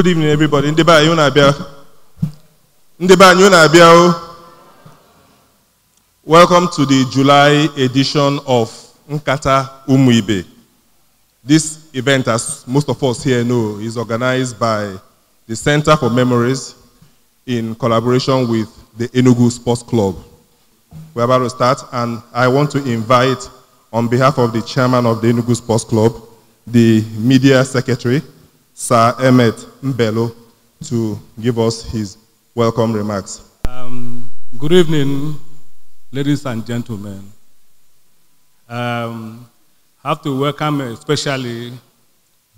Good evening, everybody. Ndị be anyị unu abịa. Ndị Welcome to the July edition of Nkata Umuibe. This event, as most of us here know, is organized by the Center for Memories in collaboration with the Enugu Sports Club. We're about to start, and I want to invite, on behalf of the chairman of the Enugu Sports Club, the media secretary, Sir Emmet Mbello to give us his welcome remarks. Um, good evening, ladies and gentlemen. Um, I have to welcome especially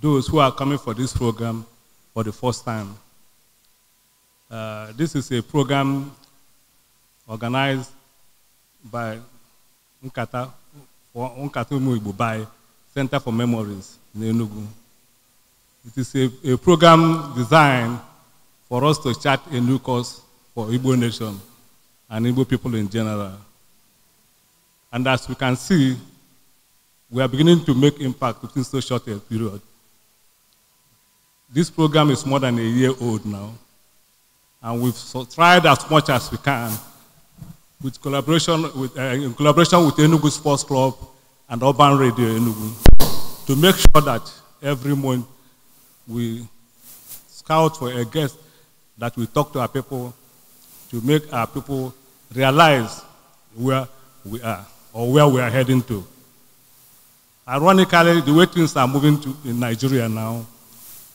those who are coming for this program for the first time. Uh, this is a program organized by Nkata, Nkata Muibu, Center for Memories in Enugu. It is a, a program designed for us to chart a new course for Igbo nation and Igbo people in general. And as we can see, we are beginning to make impact within so short a period. This program is more than a year old now, and we've tried as much as we can with collaboration with, uh, in collaboration with Enugu Sports Club and Urban Radio Enugu to make sure that every month we scout for a guest that we talk to our people to make our people realize where we are or where we are heading to. Ironically, the way things are moving to in Nigeria now,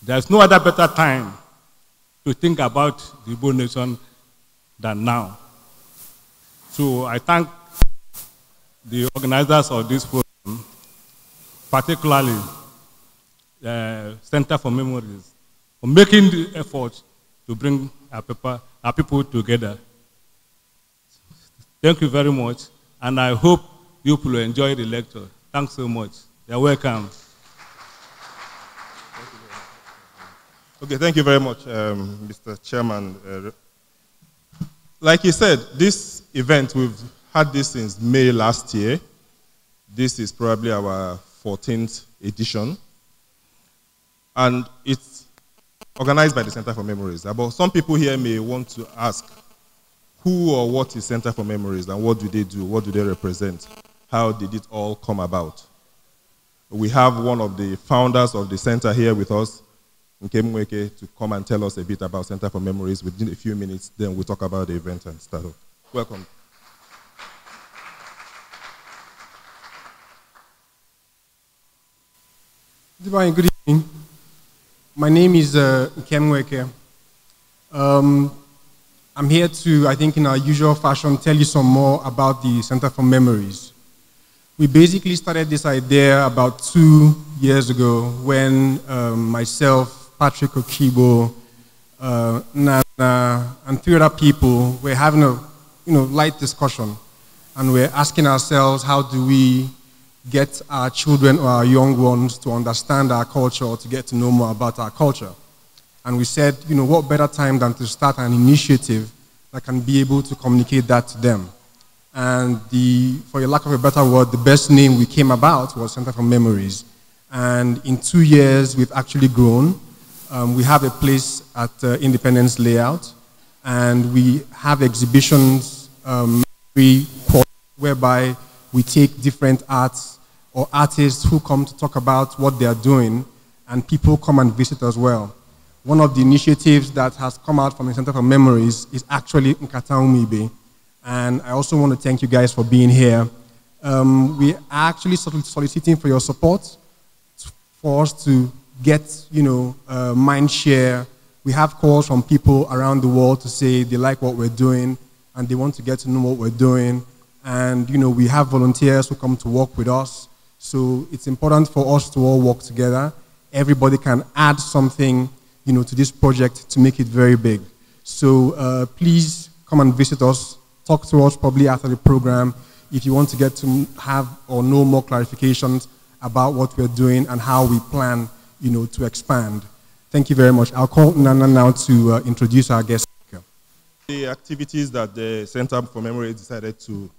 there's no other better time to think about the Igbo nation than now. So I thank the organizers of this program, particularly uh, Center for Memories for making the effort to bring our, paper, our people together. Thank you very much, and I hope you will enjoy the lecture. Thanks so much. You're welcome. Okay, thank you very much, um, Mr. Chairman. Uh, like you said, this event, we've had this since May last year. This is probably our 14th edition and it's organized by the Center for Memories. But some people here may want to ask, who or what is Center for Memories and what do they do? What do they represent? How did it all come about? We have one of the founders of the center here with us, Nkemweke, to come and tell us a bit about Center for Memories within a few minutes. Then we'll talk about the event and start off. Welcome. Good evening. My name is uh, Kem um, I'm here to, I think, in our usual fashion, tell you some more about the Center for Memories. We basically started this idea about two years ago when um, myself, Patrick Okibo, uh, Nana, and three other people were having a you know, light discussion. And we're asking ourselves, how do we get our children or our young ones to understand our culture, or to get to know more about our culture. And we said, you know, what better time than to start an initiative that can be able to communicate that to them. And the, for lack of a better word, the best name we came about was Center for Memories. And in two years, we've actually grown. Um, we have a place at uh, Independence Layout, and we have exhibitions um, whereby we take different arts or artists who come to talk about what they are doing, and people come and visit as well. One of the initiatives that has come out from the Center for Memories is actually Nkata Umibe, and I also want to thank you guys for being here. Um, we are actually soliciting for your support for us to get, you know, uh, mind share. We have calls from people around the world to say they like what we're doing and they want to get to know what we're doing. And, you know, we have volunteers who come to work with us so it's important for us to all work together. Everybody can add something, you know, to this project to make it very big. So uh, please come and visit us. Talk to us probably after the program if you want to get to have or know more clarifications about what we're doing and how we plan, you know, to expand. Thank you very much. I'll call Nana now to uh, introduce our guest speaker. The activities that the Center for Memory decided to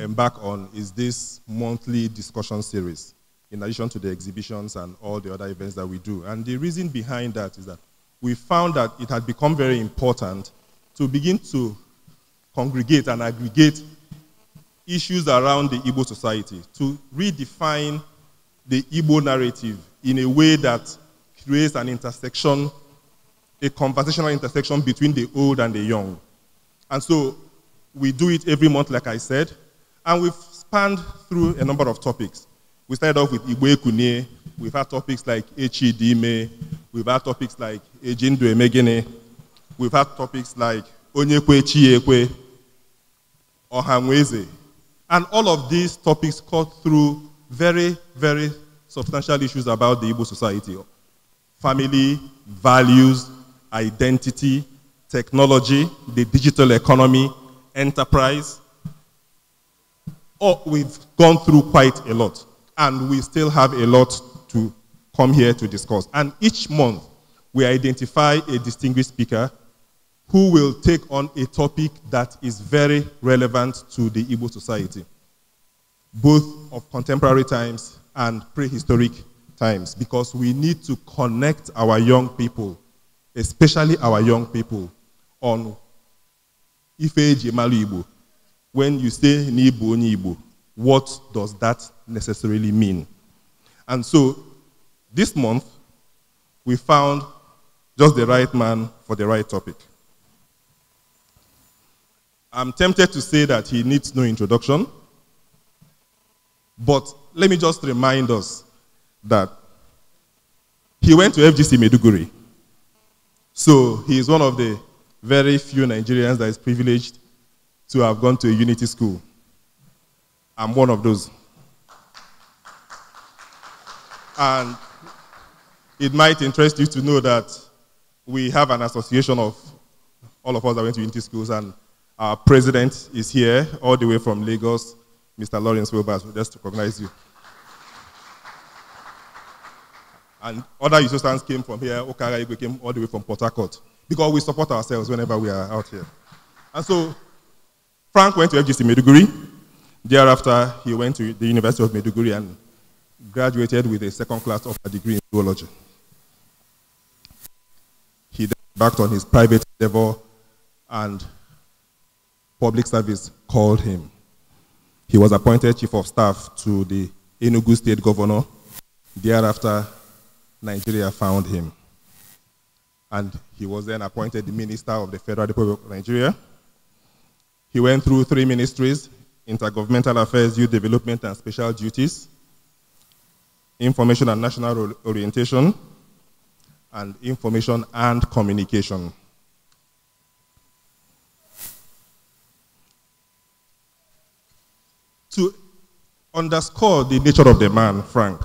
embark on is this monthly discussion series, in addition to the exhibitions and all the other events that we do. And the reason behind that is that we found that it had become very important to begin to congregate and aggregate issues around the Igbo society, to redefine the Igbo narrative in a way that creates an intersection, a conversational intersection between the old and the young. And so we do it every month, like I said. And we've spanned through a number of topics. We started off with Igwe Kune. We've had topics like Echi Dime. We've had topics like Ejindu Emegene. We've had topics like Onyekwe Chiekwe, Ohanweze. And all of these topics cut through very, very substantial issues about the Igbo society. Family, values, identity, technology, the digital economy, enterprise, Oh, we've gone through quite a lot, and we still have a lot to come here to discuss. And each month, we identify a distinguished speaker who will take on a topic that is very relevant to the Igbo society, both of contemporary times and prehistoric times, because we need to connect our young people, especially our young people, on Ife Jemalu Igbo, when you say Nibu Nibu, what does that necessarily mean? And so this month, we found just the right man for the right topic. I'm tempted to say that he needs no introduction, but let me just remind us that he went to FGC Meduguri. So he is one of the very few Nigerians that is privileged to have gone to a unity school. I'm one of those. And it might interest you to know that we have an association of all of us that went to unity schools, and our president is here all the way from Lagos, Mr. Lawrence Wilbers. We just recognize you. And other Usostands came from here, Okara Igwe came all the way from Port Harcourt, because we support ourselves whenever we are out here. And so Frank went to FGC Meduguri. Thereafter, he went to the University of Meduguri and graduated with a second class of a degree in zoology. He then embarked on his private endeavor and public service called him. He was appointed chief of staff to the Enugu state governor. Thereafter, Nigeria found him. And he was then appointed the minister of the Federal Republic of Nigeria he went through three ministries intergovernmental affairs, youth development, and special duties, information and national orientation, and information and communication. To underscore the nature of the man, Frank,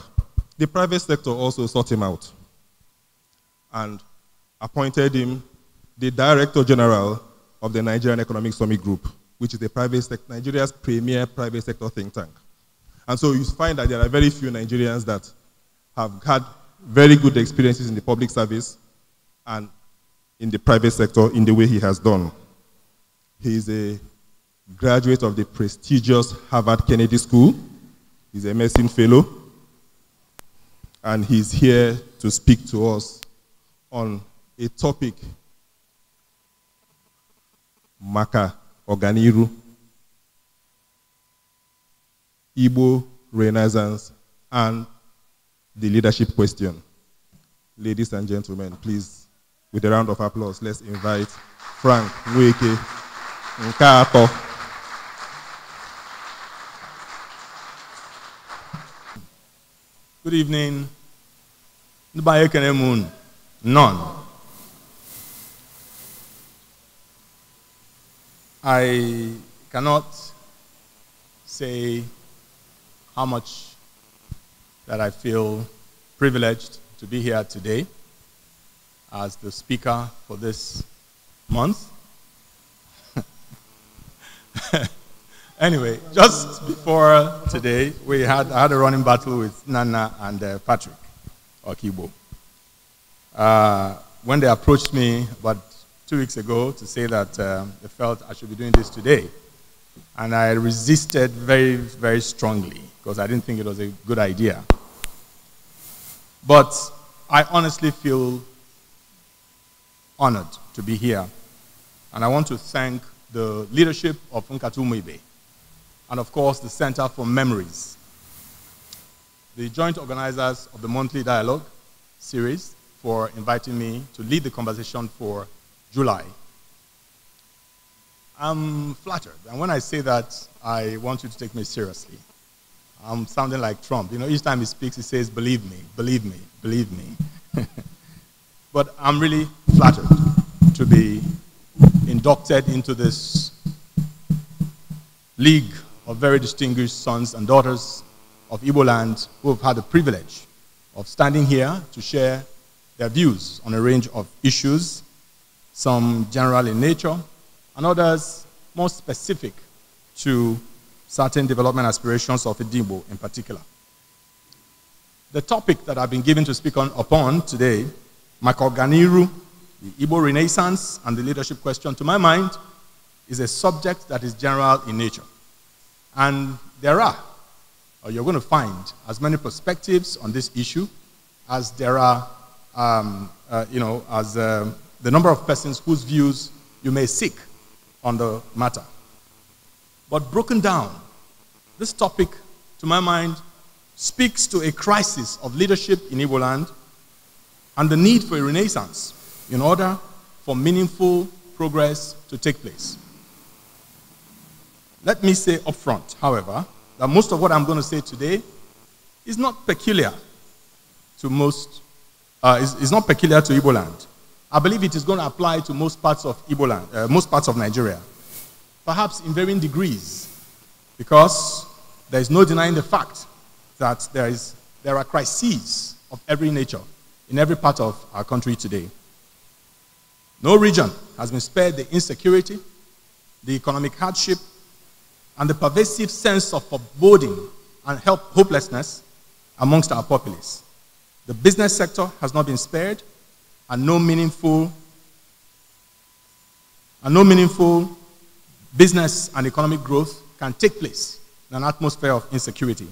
the private sector also sought him out and appointed him the Director General of the Nigerian Economic Summit Group which is private Nigeria's premier private sector think tank. And so you find that there are very few Nigerians that have had very good experiences in the public service and in the private sector in the way he has done. He is a graduate of the prestigious Harvard Kennedy School. He's a medicine fellow. And he's here to speak to us on a topic, Maka, ọganiru Igbo Renaissance and the leadership question. Ladies and gentlemen, please, with a round of applause, let's invite Frank Nweke Nkato. Good evening. None. I cannot say how much that I feel privileged to be here today as the speaker for this month. anyway, just before today, we had, I had a running battle with Nana and uh, Patrick Okibo. Uh, when they approached me about two weeks ago to say that uh, felt I should be doing this today. And I resisted very, very strongly because I didn't think it was a good idea. But I honestly feel honored to be here. And I want to thank the leadership of Nkatu and, of course, the Center for Memories, the joint organizers of the monthly dialogue series for inviting me to lead the conversation for July. I'm flattered. And when I say that, I want you to take me seriously. I'm sounding like Trump. You know, each time he speaks, he says, believe me, believe me, believe me. but I'm really flattered to be inducted into this league of very distinguished sons and daughters of Ibo land who have had the privilege of standing here to share their views on a range of issues some general in nature, and others more specific to certain development aspirations of Idimbo in particular. The topic that I've been given to speak on, upon today, Makoganiru, the Igbo Renaissance and the leadership question, to my mind, is a subject that is general in nature. And there are, or you're going to find, as many perspectives on this issue as there are, um, uh, you know, as um, the number of persons whose views you may seek on the matter. But broken down, this topic, to my mind, speaks to a crisis of leadership in Igbo land and the need for a renaissance in order for meaningful progress to take place. Let me say upfront, however, that most of what I'm going to say today is not peculiar to most, uh, is, is not peculiar to Igbo land. I believe it is going to apply to most parts of Ebola, uh, most parts of Nigeria, perhaps in varying degrees, because there is no denying the fact that there, is, there are crises of every nature in every part of our country today. No region has been spared the insecurity, the economic hardship, and the pervasive sense of foreboding and help, hopelessness amongst our populace. The business sector has not been spared, and no meaningful and no meaningful business and economic growth can take place in an atmosphere of insecurity.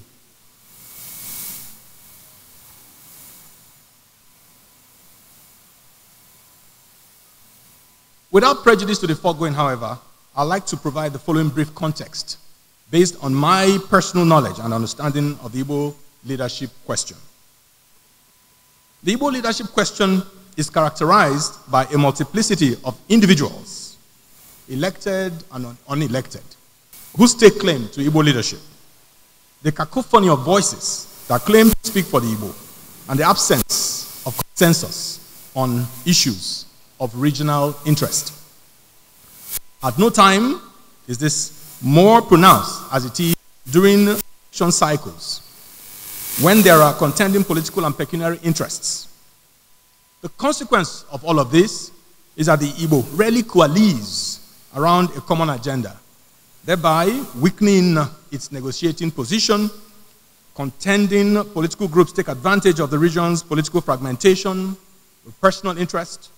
Without prejudice to the foregoing, however, I'd like to provide the following brief context based on my personal knowledge and understanding of the Igbo leadership question. The Igbo leadership question is characterized by a multiplicity of individuals, elected and unelected, who stake claim to Igbo leadership. The cacophony of voices that claim to speak for the Igbo and the absence of consensus on issues of regional interest. At no time is this more pronounced as it is during election cycles when there are contending political and pecuniary interests the consequence of all of this is that the Igbo rarely coalesce around a common agenda, thereby weakening its negotiating position. Contending political groups take advantage of the region's political fragmentation, personal interest,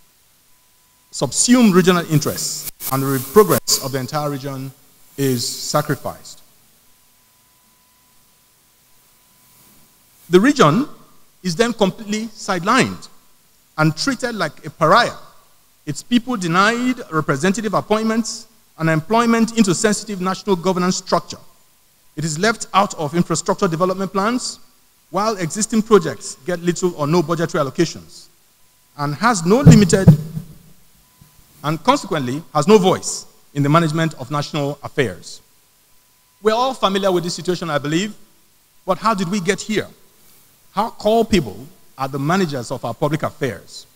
subsume regional interests, and the progress of the entire region is sacrificed. The region is then completely sidelined and treated like a pariah. Its people denied representative appointments and employment into sensitive national governance structure. It is left out of infrastructure development plans, while existing projects get little or no budgetary allocations, and has no limited, and consequently has no voice in the management of national affairs. We're all familiar with this situation, I believe, but how did we get here? How call people are the managers of our public affairs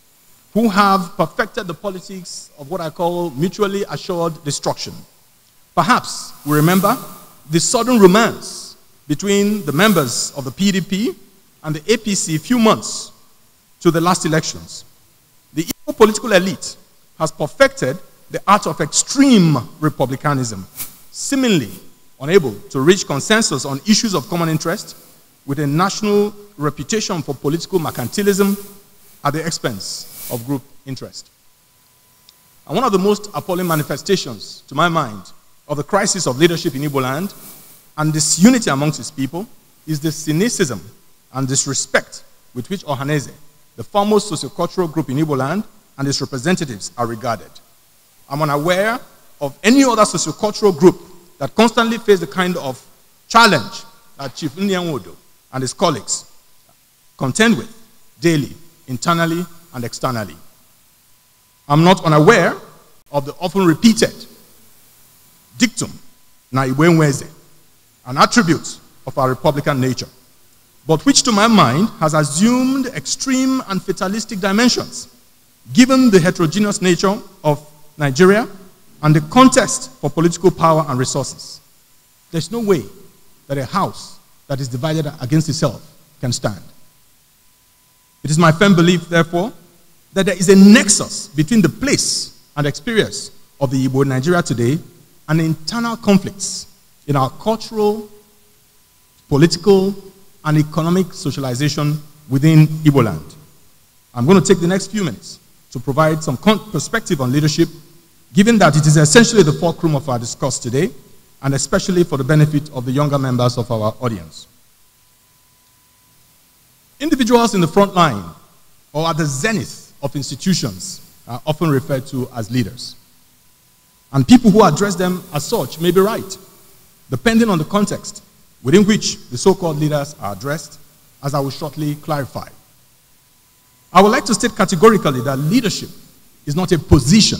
who have perfected the politics of what I call mutually assured destruction. Perhaps we remember the sudden romance between the members of the PDP and the APC a few months to the last elections. The evil political elite has perfected the art of extreme republicanism, seemingly unable to reach consensus on issues of common interest with a national reputation for political mercantilism at the expense of group interest. And one of the most appalling manifestations, to my mind, of the crisis of leadership in Igbo land and disunity amongst its people is the cynicism and disrespect with which Ohaneze, the foremost sociocultural group in Igbo land, and its representatives are regarded. I'm unaware of any other sociocultural group that constantly face the kind of challenge that Chief Nyanwodo and his colleagues contend with daily, internally, and externally. I'm not unaware of the often repeated dictum, Naiwenweze, an attribute of our Republican nature, but which to my mind has assumed extreme and fatalistic dimensions, given the heterogeneous nature of Nigeria and the contest for political power and resources. There's no way that a house that is divided against itself can stand. It is my firm belief, therefore, that there is a nexus between the place and experience of the Igbo Nigeria today and internal conflicts in our cultural, political, and economic socialization within Igbo land. I'm going to take the next few minutes to provide some perspective on leadership, given that it is essentially the fulcrum of our discourse today and especially for the benefit of the younger members of our audience. Individuals in the front line or at the zenith of institutions are often referred to as leaders. And people who address them as such may be right, depending on the context within which the so called leaders are addressed, as I will shortly clarify. I would like to state categorically that leadership is not a position.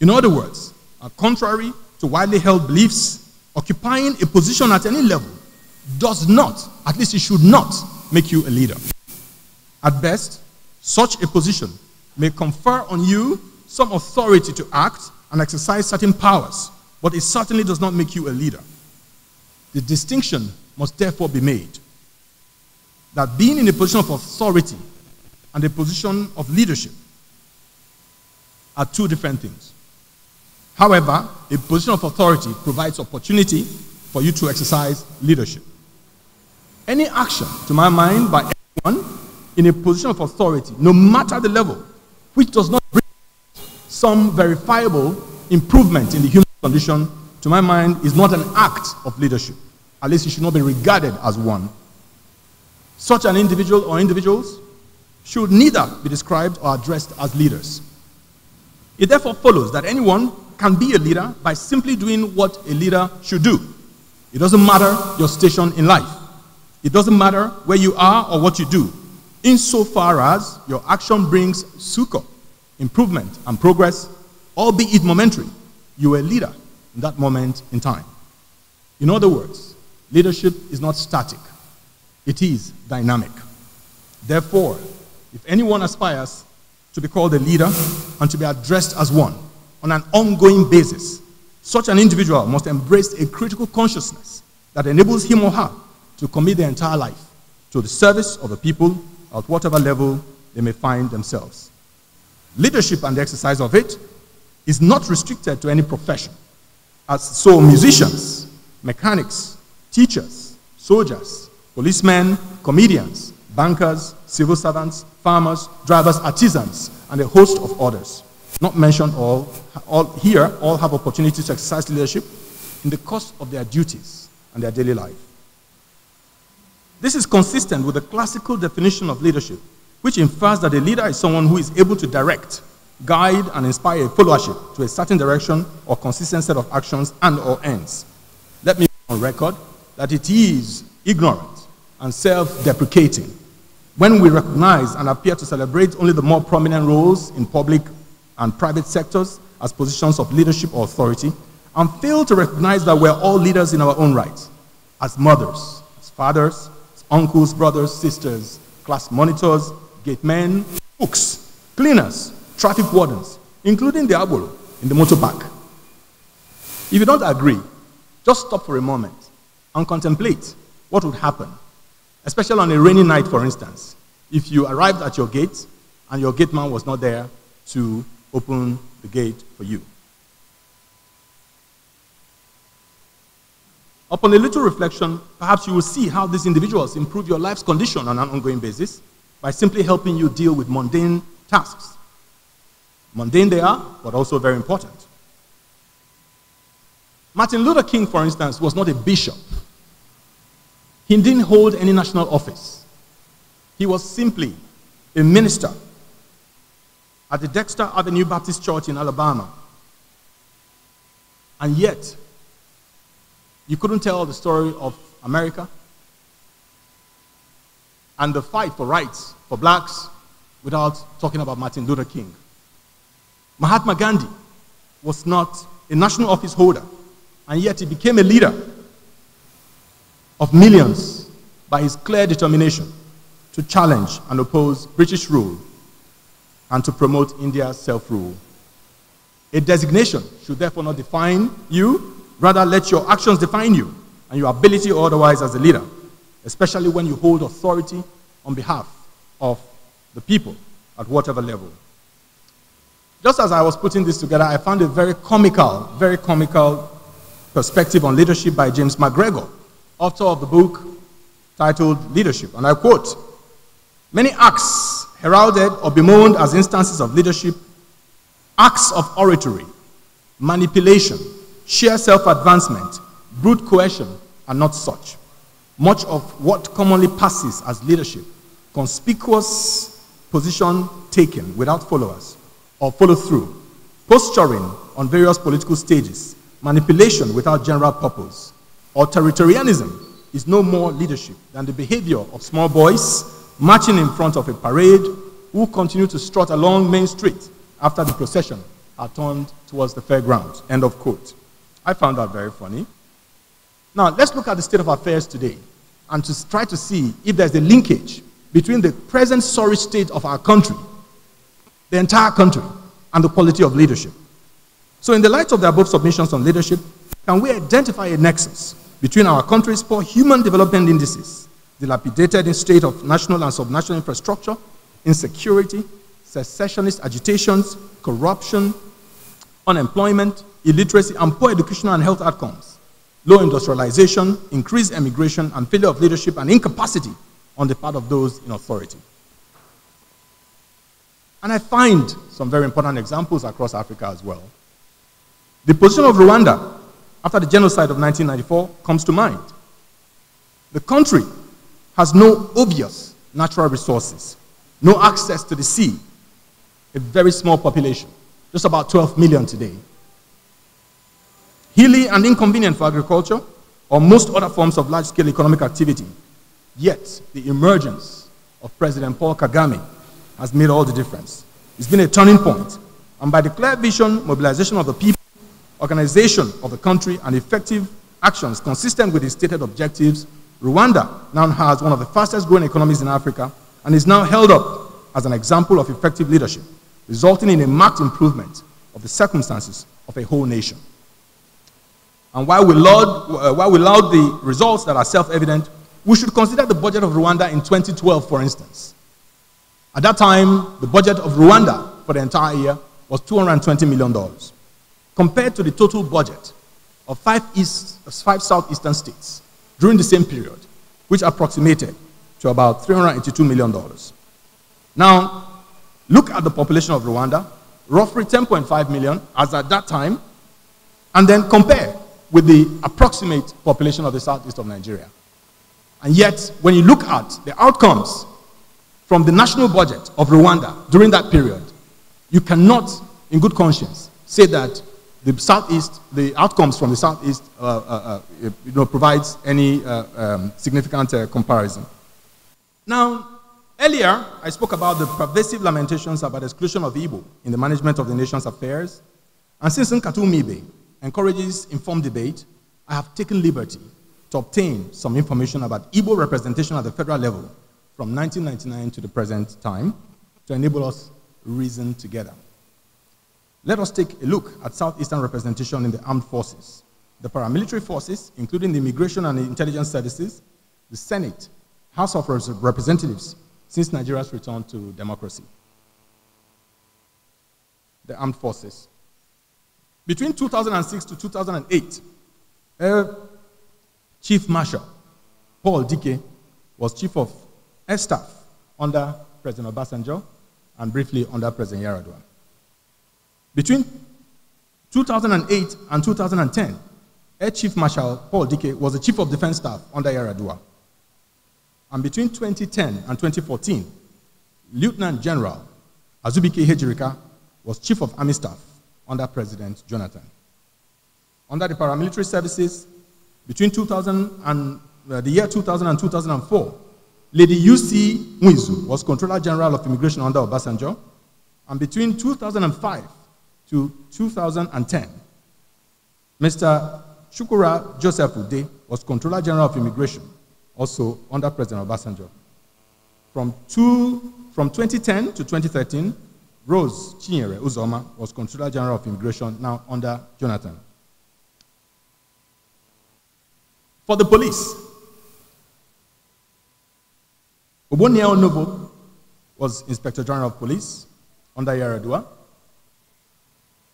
In other words, contrary to widely held beliefs, occupying a position at any level does not, at least it should not, make you a leader. At best, such a position may confer on you some authority to act and exercise certain powers, but it certainly does not make you a leader. The distinction must therefore be made that being in a position of authority and a position of leadership are two different things. However, a position of authority provides opportunity for you to exercise leadership. Any action, to my mind, by anyone in a position of authority, no matter the level, which does not bring some verifiable improvement in the human condition, to my mind, is not an act of leadership. At least it should not be regarded as one. Such an individual or individuals should neither be described or addressed as leaders. It therefore follows that anyone can be a leader by simply doing what a leader should do. It doesn't matter your station in life, it doesn't matter where you are or what you do, insofar as your action brings succor, improvement, and progress, albeit momentary. You are a leader in that moment in time. In other words, leadership is not static, it is dynamic. Therefore, if anyone aspires to be called a leader and to be addressed as one, on an ongoing basis, such an individual must embrace a critical consciousness that enables him or her to commit their entire life to the service of the people at whatever level they may find themselves. Leadership and the exercise of it is not restricted to any profession, as so musicians, mechanics, teachers, soldiers, policemen, comedians, bankers, civil servants, farmers, drivers, artisans, and a host of others not mentioned all, all here, all have opportunities to exercise leadership in the course of their duties and their daily life. This is consistent with the classical definition of leadership, which infers that a leader is someone who is able to direct, guide, and inspire a followership to a certain direction or consistent set of actions and or ends. Let me on record that it is ignorant and self-deprecating when we recognize and appear to celebrate only the more prominent roles in public and private sectors as positions of leadership or authority and fail to recognize that we're all leaders in our own right as mothers, as fathers, as uncles, brothers, sisters, class monitors, gate men, cooks, cleaners, traffic wardens, including the abuelo in the motor park. If you don't agree, just stop for a moment and contemplate what would happen, especially on a rainy night, for instance, if you arrived at your gate and your gate man was not there to open the gate for you. Upon a little reflection, perhaps you will see how these individuals improve your life's condition on an ongoing basis by simply helping you deal with mundane tasks. Mundane they are, but also very important. Martin Luther King, for instance, was not a bishop. He didn't hold any national office. He was simply a minister at the Dexter Avenue Baptist Church in Alabama. And yet, you couldn't tell the story of America and the fight for rights for blacks without talking about Martin Luther King. Mahatma Gandhi was not a national office holder, and yet he became a leader of millions by his clear determination to challenge and oppose British rule and to promote India's self rule. A designation should therefore not define you, rather, let your actions define you and your ability or otherwise as a leader, especially when you hold authority on behalf of the people at whatever level. Just as I was putting this together, I found a very comical, very comical perspective on leadership by James McGregor, author of the book titled Leadership. And I quote Many acts heralded or bemoaned as instances of leadership, acts of oratory, manipulation, sheer self advancement, brute coercion are not such. Much of what commonly passes as leadership, conspicuous position taken without followers or follow through, posturing on various political stages, manipulation without general purpose, or territorialism is no more leadership than the behavior of small boys marching in front of a parade, who continue to strut along Main Street after the procession are turned towards the fairgrounds. End of quote. I found that very funny. Now, let's look at the state of affairs today and to try to see if there's a linkage between the present sorry state of our country, the entire country, and the quality of leadership. So, in the light of the above submissions on leadership, can we identify a nexus between our country's poor human development indices dilapidated in state of national and subnational infrastructure, insecurity, secessionist agitations, corruption, unemployment, illiteracy, and poor educational and health outcomes, low industrialization, increased emigration, and failure of leadership and incapacity on the part of those in authority. And I find some very important examples across Africa as well. The position of Rwanda after the genocide of 1994 comes to mind. The country has no obvious natural resources, no access to the sea, a very small population, just about 12 million today. Hilly and inconvenient for agriculture or most other forms of large scale economic activity. Yet, the emergence of President Paul Kagame has made all the difference. It's been a turning point, and by the clear vision, mobilization of the people, organization of the country, and effective actions consistent with the stated objectives Rwanda now has one of the fastest growing economies in Africa and is now held up as an example of effective leadership, resulting in a marked improvement of the circumstances of a whole nation. And while we laud, uh, while we laud the results that are self evident, we should consider the budget of Rwanda in 2012, for instance. At that time, the budget of Rwanda for the entire year was $220 million, compared to the total budget of five, east, five southeastern states during the same period, which approximated to about $382 million. Now, look at the population of Rwanda, roughly 10.5 million as at that time, and then compare with the approximate population of the southeast of Nigeria. And yet, when you look at the outcomes from the national budget of Rwanda during that period, you cannot, in good conscience, say that the southeast, the outcomes from the southeast, uh, uh, uh you know, provides any uh, um, significant comparison. Now, earlier I spoke about the pervasive lamentations about exclusion of Igbo in the management of the nation's affairs, and since Nkatumibe encourages informed debate, I have taken liberty to obtain some information about Igbo representation at the federal level from 1999 to the present time to enable us reason together. Let us take a look at Southeastern representation in the armed forces, the paramilitary forces, including the Immigration and Intelligence Services, the Senate, House of Representatives, since Nigeria's return to democracy. The armed forces. Between 2006 to 2008, Chief Marshal Paul Dike was Chief of Air Staff under President Obasanjo and briefly under President Yaradua. Between 2008 and 2010, Air Chief Marshal Paul Dike was the Chief of Defense Staff under Yaradua. And between 2010 and 2014, Lieutenant General Azubike Hejirika was Chief of Army Staff under President Jonathan. Under the paramilitary services, between 2000 and uh, the year 2000 and 2004, Lady UC Mwizu was Controller General of Immigration under Obasanjo. And between 2005 to 2010, Mr. Shukura Joseph Ude was Controller General of Immigration, also under President Obasanjo. From, two, from 2010 to 2013, Rose Chinyere Uzoma was Controller General of Immigration, now under Jonathan. For the police, Obonia Onobo was Inspector General of Police under Yaradua.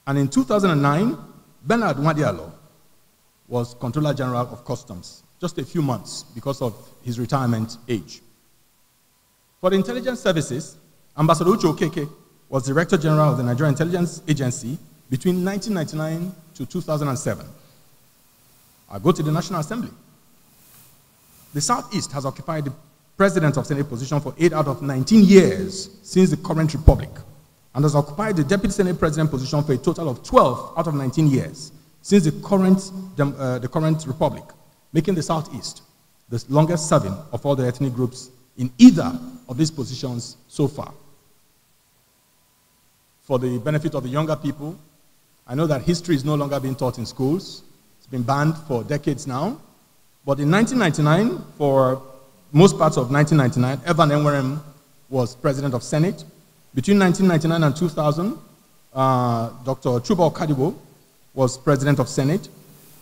And in 2009, Bernard Wadiolo was Controller General of Customs, just a few months because of his retirement age. For the intelligence services, Ambassador Uche Okeke was Director General of the Nigerian Intelligence Agency between 1999 to 2007. I go to the National Assembly. The Southeast has occupied the President of Senate position for eight out of 19 years since the current republic and has occupied the deputy senate president position for a total of 12 out of 19 years since the current, uh, the current republic, making the southeast the longest serving of all the ethnic groups in either of these positions so far. For the benefit of the younger people, I know that history is no longer being taught in schools. It's been banned for decades now. But in 1999, for most parts of 1999, Evan Enwerem was president of Senate between 1999 and 2000, uh, Dr. Chubal Kadibo was president of Senate.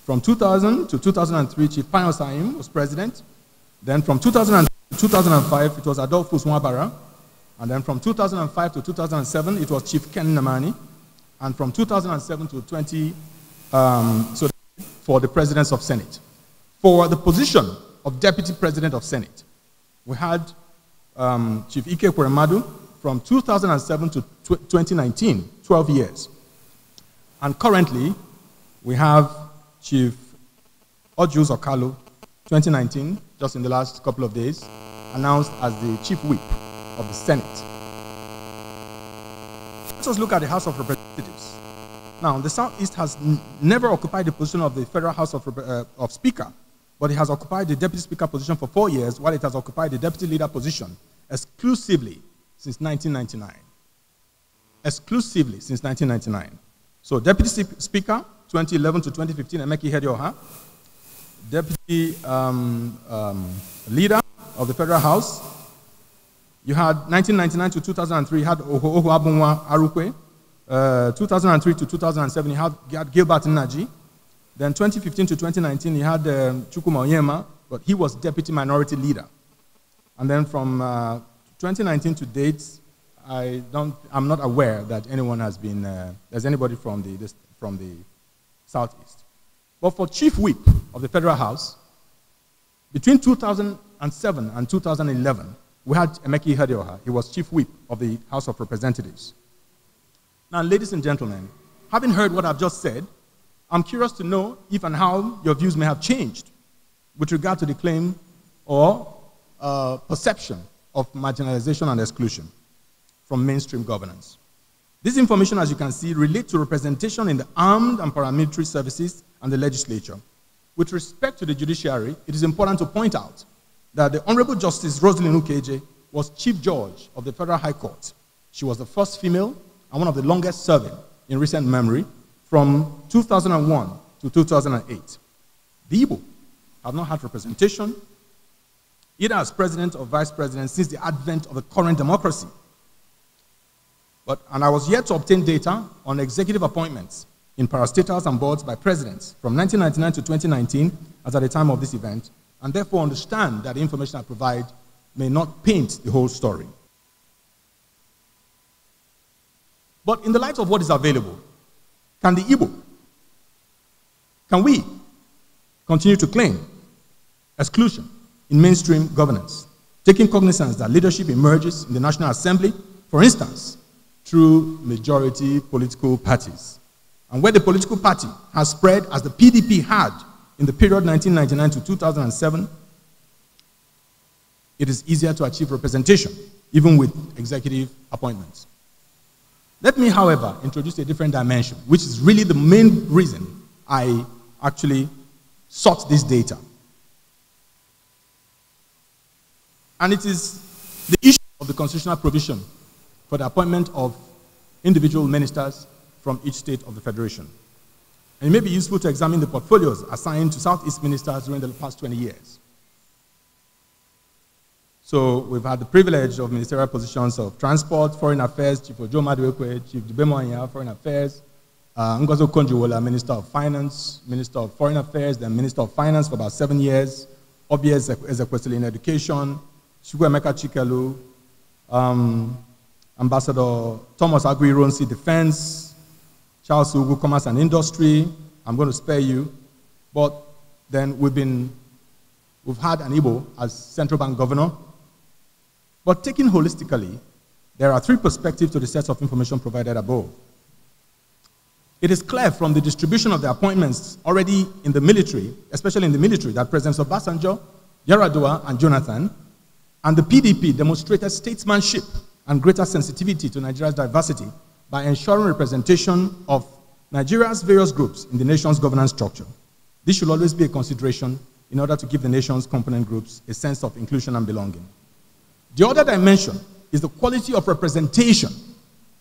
From 2000 to 2003, Chief Payos Saim was president. Then from 2000 to 2005, it was Adolphus Mwabara. And then from 2005 to 2007, it was Chief Ken Namani. And from 2007 to 20, um, so for the presidents of Senate. For the position of deputy president of Senate, we had um, Chief Ike Kuremadu, from 2007 to 2019, 12 years. And currently, we have Chief Odjus Okalu. 2019, just in the last couple of days, announced as the Chief Whip of the Senate. Let us look at the House of Representatives. Now, the Southeast has never occupied the position of the Federal House of, uh, of Speaker, but it has occupied the Deputy Speaker position for four years, while it has occupied the Deputy Leader position exclusively since 1999. Exclusively since 1999. So Deputy Speaker, 2011 to 2015, Emeki Hedioha. Deputy um, um, Leader of the Federal House. You had 1999 to 2003, you had Oho Abunwa Arukwe. Uh, 2003 to 2007, you had, Gilbert Naji. Then 2015 to 2019, you had um, Chukuma Oyema, but he was Deputy Minority Leader. And then from uh, 2019 to date, I don't, I'm not aware that anyone has been, uh, there's anybody from the, this, from the southeast. But for chief whip of the federal house, between 2007 and 2011, we had Emeki Hedioha. He was chief whip of the House of Representatives. Now, ladies and gentlemen, having heard what I've just said, I'm curious to know if and how your views may have changed with regard to the claim or uh, perception of marginalization and exclusion from mainstream governance. This information, as you can see, relates to representation in the armed and paramilitary services and the legislature. With respect to the judiciary, it is important to point out that the Honorable Justice Rosalind Ukeje was Chief Judge of the Federal High Court. She was the first female and one of the longest serving in recent memory from 2001 to 2008. The Igbo have not had representation either as president or vice president since the advent of the current democracy. But, and I was yet to obtain data on executive appointments in parastatals and boards by presidents from 1999 to 2019 as at the time of this event, and therefore understand that the information I provide may not paint the whole story. But in the light of what is available, can the Igbo, can we continue to claim exclusion in mainstream governance, taking cognizance that leadership emerges in the National Assembly, for instance, through majority political parties. And where the political party has spread as the PDP had in the period 1999 to 2007, it is easier to achieve representation, even with executive appointments. Let me, however, introduce a different dimension, which is really the main reason I actually sought this data. And it is the issue of the constitutional provision for the appointment of individual ministers from each state of the Federation. And it may be useful to examine the portfolios assigned to Southeast ministers during the past 20 years. So we've had the privilege of ministerial positions of transport, foreign affairs, Chief Ojo Maduekwu, Chief Dibemoanya, foreign affairs, uh, Ngozo Konjiwola, Minister of Finance, Minister of Foreign Affairs, then Minister of Finance for about seven years, Obies Ezekwesili in education, Shukwemeka Chikelu, um, Ambassador Thomas Aguirre, Defense, Charles Ugu, Commerce and Industry. I'm going to spare you. But then we've been, we've had an Igbo as central bank governor. But taken holistically, there are three perspectives to the sets of information provided above. It is clear from the distribution of the appointments already in the military, especially in the military, that Presidents Obasanjo, Yaradua, and Jonathan and the PDP demonstrated statesmanship and greater sensitivity to Nigeria's diversity by ensuring representation of Nigeria's various groups in the nation's governance structure. This should always be a consideration in order to give the nation's component groups a sense of inclusion and belonging. The other dimension is the quality of representation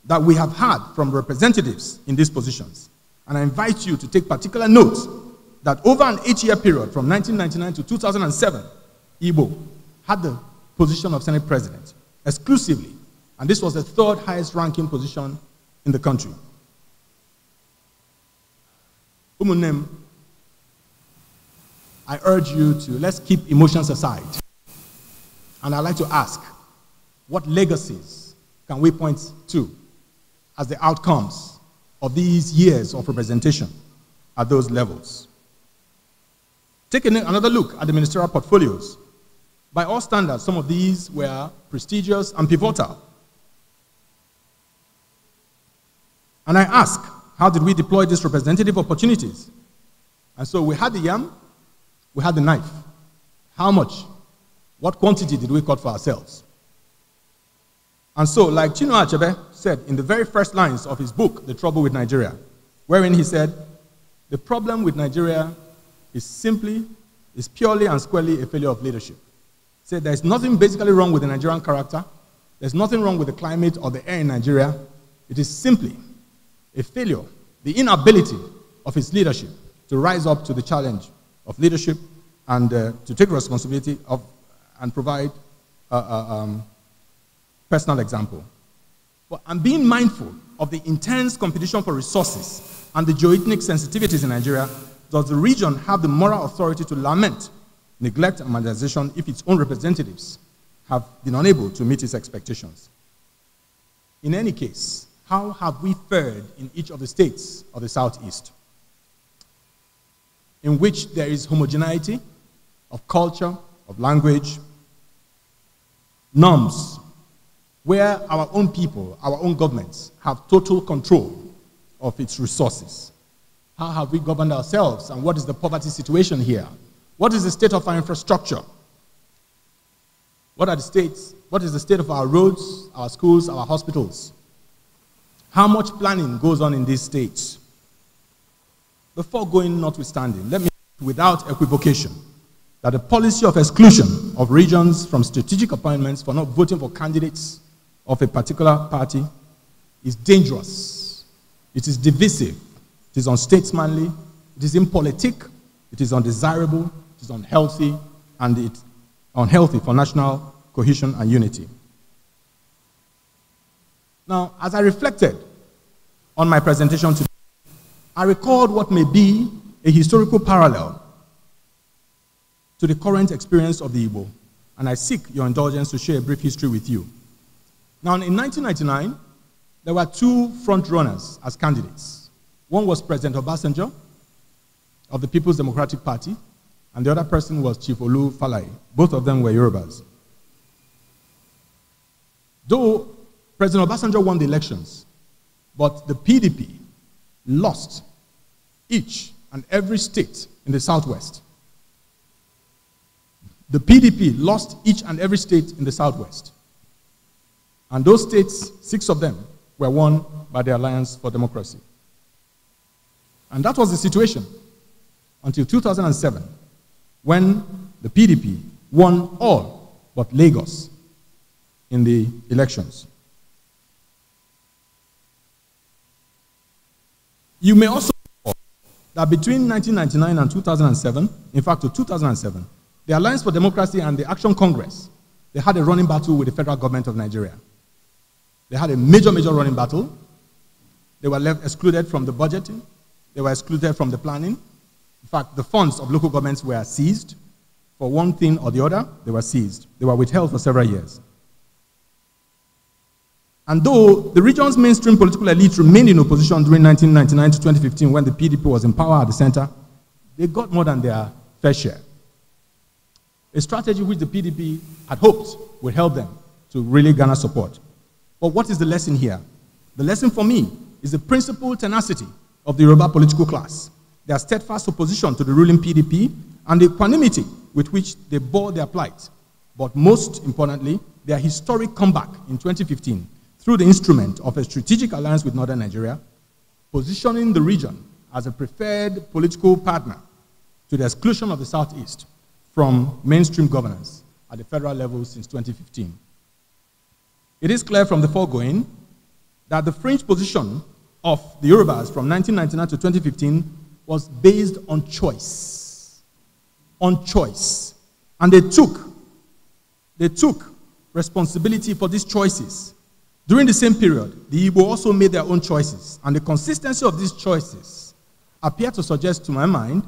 that we have had from representatives in these positions. And I invite you to take particular note that over an eight-year period from 1999 to 2007, Igbo had the position of Senate President exclusively. And this was the third highest ranking position in the country. Umunem, I urge you to let's keep emotions aside. And I'd like to ask what legacies can we point to as the outcomes of these years of representation at those levels? Take another look at the ministerial portfolios by all standards, some of these were prestigious and pivotal. And I ask, how did we deploy these representative opportunities? And so we had the yam, we had the knife. How much? What quantity did we cut for ourselves? And so, like Chino Achebe said in the very first lines of his book, The Trouble with Nigeria, wherein he said, The problem with Nigeria is simply, is purely and squarely a failure of leadership said there's nothing basically wrong with the Nigerian character. There's nothing wrong with the climate or the air in Nigeria. It is simply a failure, the inability of its leadership to rise up to the challenge of leadership and uh, to take responsibility of, and provide a, uh, a uh, um, personal example. But I'm being mindful of the intense competition for resources and the geoethnic sensitivities in Nigeria. Does the region have the moral authority to lament neglect and marginalization if its own representatives have been unable to meet its expectations. In any case, how have we fared in each of the states of the Southeast, in which there is homogeneity of culture, of language, norms, where our own people, our own governments, have total control of its resources? How have we governed ourselves, and what is the poverty situation here? What is the state of our infrastructure? What are the states? What is the state of our roads, our schools, our hospitals? How much planning goes on in these states? Before going notwithstanding, let me without equivocation that the policy of exclusion of regions from strategic appointments for not voting for candidates of a particular party is dangerous. It is divisive. It is unstatesmanly. It is impolitic. It is undesirable is unhealthy and it's unhealthy for national cohesion and unity. Now, as I reflected on my presentation today, I recalled what may be a historical parallel to the current experience of the Igbo, and I seek your indulgence to share a brief history with you. Now, in 1999, there were two front runners as candidates. One was President Obasanjo of the People's Democratic Party, and the other person was Chief Olu Falai. Both of them were Yorubas. Though President Obasanjo won the elections, but the PDP lost each and every state in the southwest. The PDP lost each and every state in the southwest. And those states, six of them, were won by the Alliance for Democracy. And that was the situation until 2007 when the PDP won all but Lagos in the elections. You may also recall that between 1999 and 2007, in fact, to 2007, the Alliance for Democracy and the Action Congress, they had a running battle with the federal government of Nigeria. They had a major, major running battle. They were left excluded from the budgeting. They were excluded from the planning. In fact, the funds of local governments were seized. For one thing or the other, they were seized. They were withheld for several years. And though the region's mainstream political elite remained in opposition during 1999 to 2015 when the PDP was in power at the center, they got more than their fair share. A strategy which the PDP had hoped would help them to really garner support. But what is the lesson here? The lesson for me is the principal tenacity of the Yoruba political class their steadfast opposition to the ruling PDP, and the equanimity with which they bore their plight. But most importantly, their historic comeback in 2015 through the instrument of a strategic alliance with Northern Nigeria, positioning the region as a preferred political partner to the exclusion of the Southeast from mainstream governance at the federal level since 2015. It is clear from the foregoing that the fringe position of the Yorubas from 1999 to 2015 was based on choice. On choice. And they took, they took responsibility for these choices. During the same period, the Igbo also made their own choices, and the consistency of these choices appear to suggest to my mind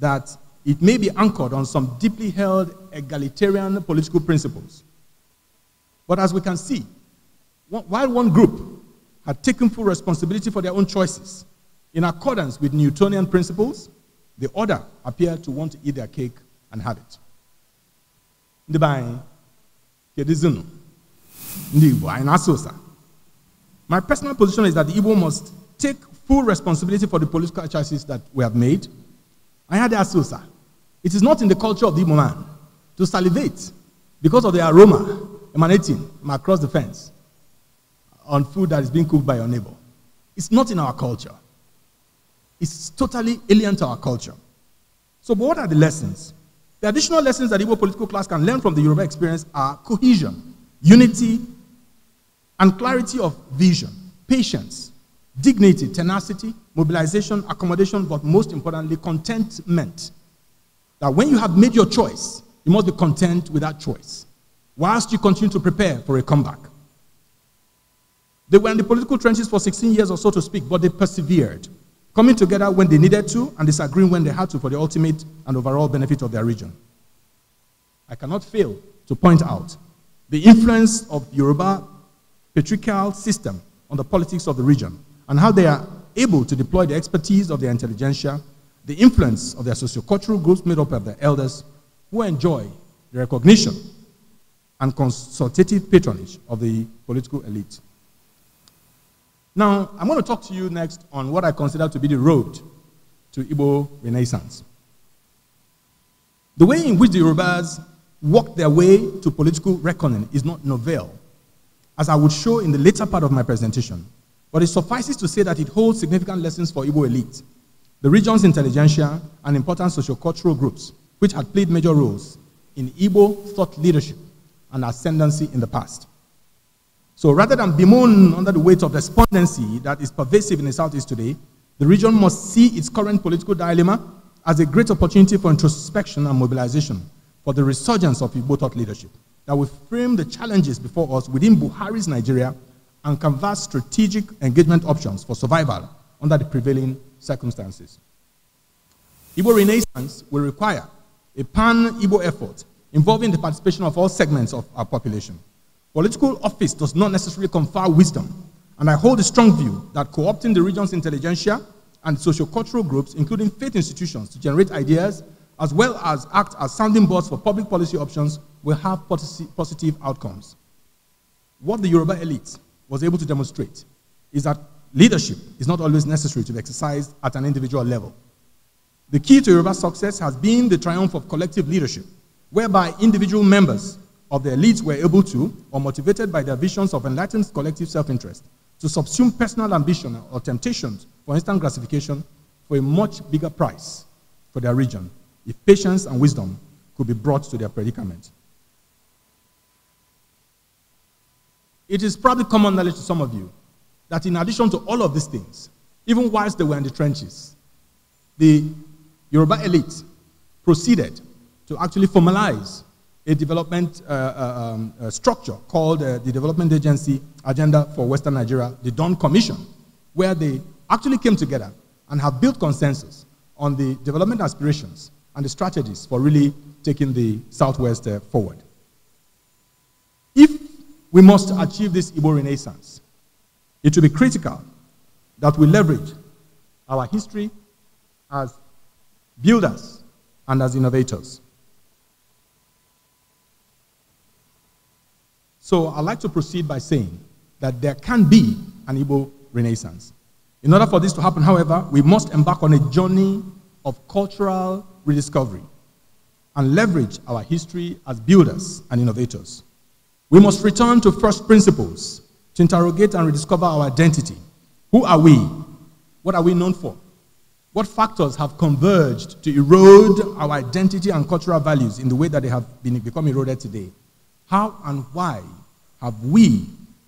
that it may be anchored on some deeply held egalitarian political principles. But as we can see, while one group had taken full responsibility for their own choices, in accordance with Newtonian principles, the order appeared to want to eat their cake and have it. Ndị be anyị, Ndị Igbo, anyi My personal position is that the Igbo must take full responsibility for the political choices that we have made. I had asked it is not in the culture of the Igbo man to salivate because of the aroma emanating from across the fence on food that is being cooked by your neighbor. It's not in our culture. It's totally alien to our culture. So, but what are the lessons? The additional lessons that Igbo political class can learn from the Yoruba experience are cohesion, unity, and clarity of vision, patience, dignity, tenacity, mobilization, accommodation, but most importantly, contentment. That when you have made your choice, you must be content with that choice, whilst you continue to prepare for a comeback. They were in the political trenches for 16 years or so to speak, but they persevered coming together when they needed to and disagreeing when they had to for the ultimate and overall benefit of their region. I cannot fail to point out the influence of Yoruba patriarchal system on the politics of the region and how they are able to deploy the expertise of their intelligentsia, the influence of their sociocultural groups made up of their elders who enjoy the recognition and consultative patronage of the political elite. Now, I'm going to talk to you next on what I consider to be the road to Igbo Renaissance. The way in which the Yorubas walked their way to political reckoning is not novel, as I would show in the later part of my presentation. But it suffices to say that it holds significant lessons for Igbo elite, the region's intelligentsia, and important sociocultural groups, which had played major roles in Igbo thought leadership and ascendancy in the past. So rather than bemoan under the weight of despondency that is pervasive in the Southeast today, the region must see its current political dilemma as a great opportunity for introspection and mobilization for the resurgence of Igbo thought leadership that will frame the challenges before us within Buhari's Nigeria and canvas strategic engagement options for survival under the prevailing circumstances. Igbo Renaissance will require a pan-Igbo effort involving the participation of all segments of our population. Political office does not necessarily confer wisdom, and I hold a strong view that co opting the region's intelligentsia and sociocultural groups, including faith institutions, to generate ideas as well as act as sounding boards for public policy options will have positive outcomes. What the Yoruba elite was able to demonstrate is that leadership is not always necessary to be exercised at an individual level. The key to Yoruba success has been the triumph of collective leadership, whereby individual members of the elites were able to, or motivated by their visions of enlightened collective self interest, to subsume personal ambition or temptations for instant gratification for a much bigger price for their region if patience and wisdom could be brought to their predicament. It is probably common knowledge to some of you that in addition to all of these things, even whilst they were in the trenches, the Yoruba elite proceeded to actually formalize a development uh, uh um, structure called uh, the Development Agency Agenda for Western Nigeria, the Don Commission, where they actually came together and have built consensus on the development aspirations and the strategies for really taking the Southwest uh, forward. If we must achieve this Igbo renaissance, it will be critical that we leverage our history as builders and as innovators. So I'd like to proceed by saying that there can be an Igbo renaissance. In order for this to happen, however, we must embark on a journey of cultural rediscovery and leverage our history as builders and innovators. We must return to first principles to interrogate and rediscover our identity. Who are we? What are we known for? What factors have converged to erode our identity and cultural values in the way that they have been, become eroded today? How and why have we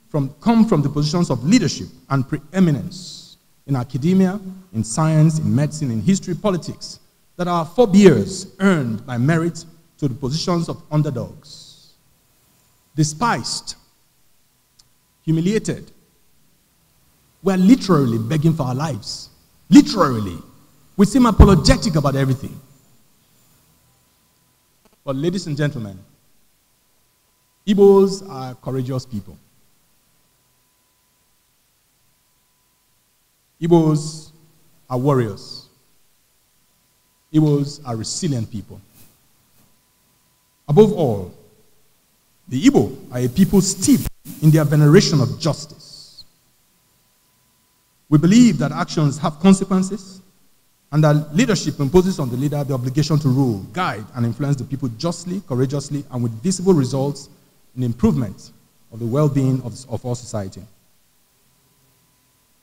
from, come from the positions of leadership and preeminence in academia, in science, in medicine, in history, politics, that our forebears earned by merit to the positions of underdogs? Despised, humiliated, we're literally begging for our lives. Literally. We seem apologetic about everything. But, ladies and gentlemen, Igbos are courageous people. Igbos are warriors. Igbos are resilient people. Above all, the Igbo are a people steeped in their veneration of justice. We believe that actions have consequences and that leadership imposes on the leader the obligation to rule, guide, and influence the people justly, courageously, and with visible results in improvement of the well-being of, of our society.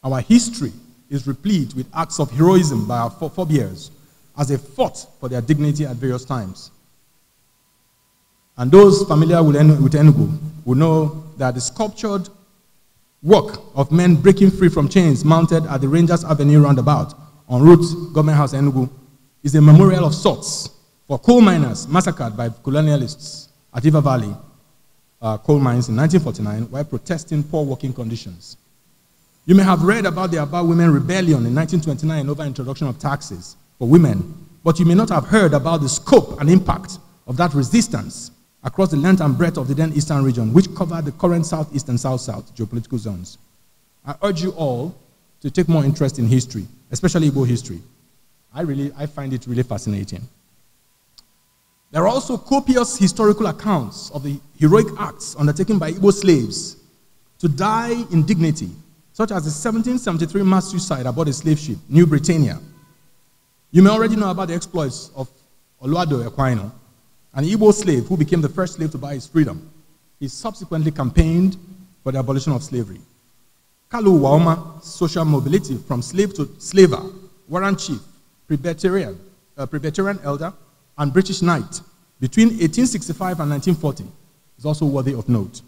Our history is replete with acts of heroism by our forebears as they fought for their dignity at various times. And those familiar with, Enugu will know that the sculptured work of men breaking free from chains mounted at the Rangers Avenue roundabout on route Government House Enugu is a memorial of sorts for coal miners massacred by colonialists at River Valley uh, coal mines in 1949 while protesting poor working conditions. You may have read about the About Women Rebellion in 1929 over introduction of taxes for women, but you may not have heard about the scope and impact of that resistance across the length and breadth of the then eastern region, which covered the current southeast and south-south geopolitical zones. I urge you all to take more interest in history, especially Igbo history. I really, I find it really fascinating. There are also copious historical accounts of the heroic acts undertaken by Igbo slaves to die in dignity, such as the 1773 mass suicide aboard a slave ship, New Britannia. You may already know about the exploits of Oluwado Equino, an Igbo slave who became the first slave to buy his freedom. He subsequently campaigned for the abolition of slavery. Kalu Waoma, social mobility from slave to slaver, warrant chief, Presbyterian, uh, Presbyterian elder, and British knight between 1865 and 1940 is also worthy of note.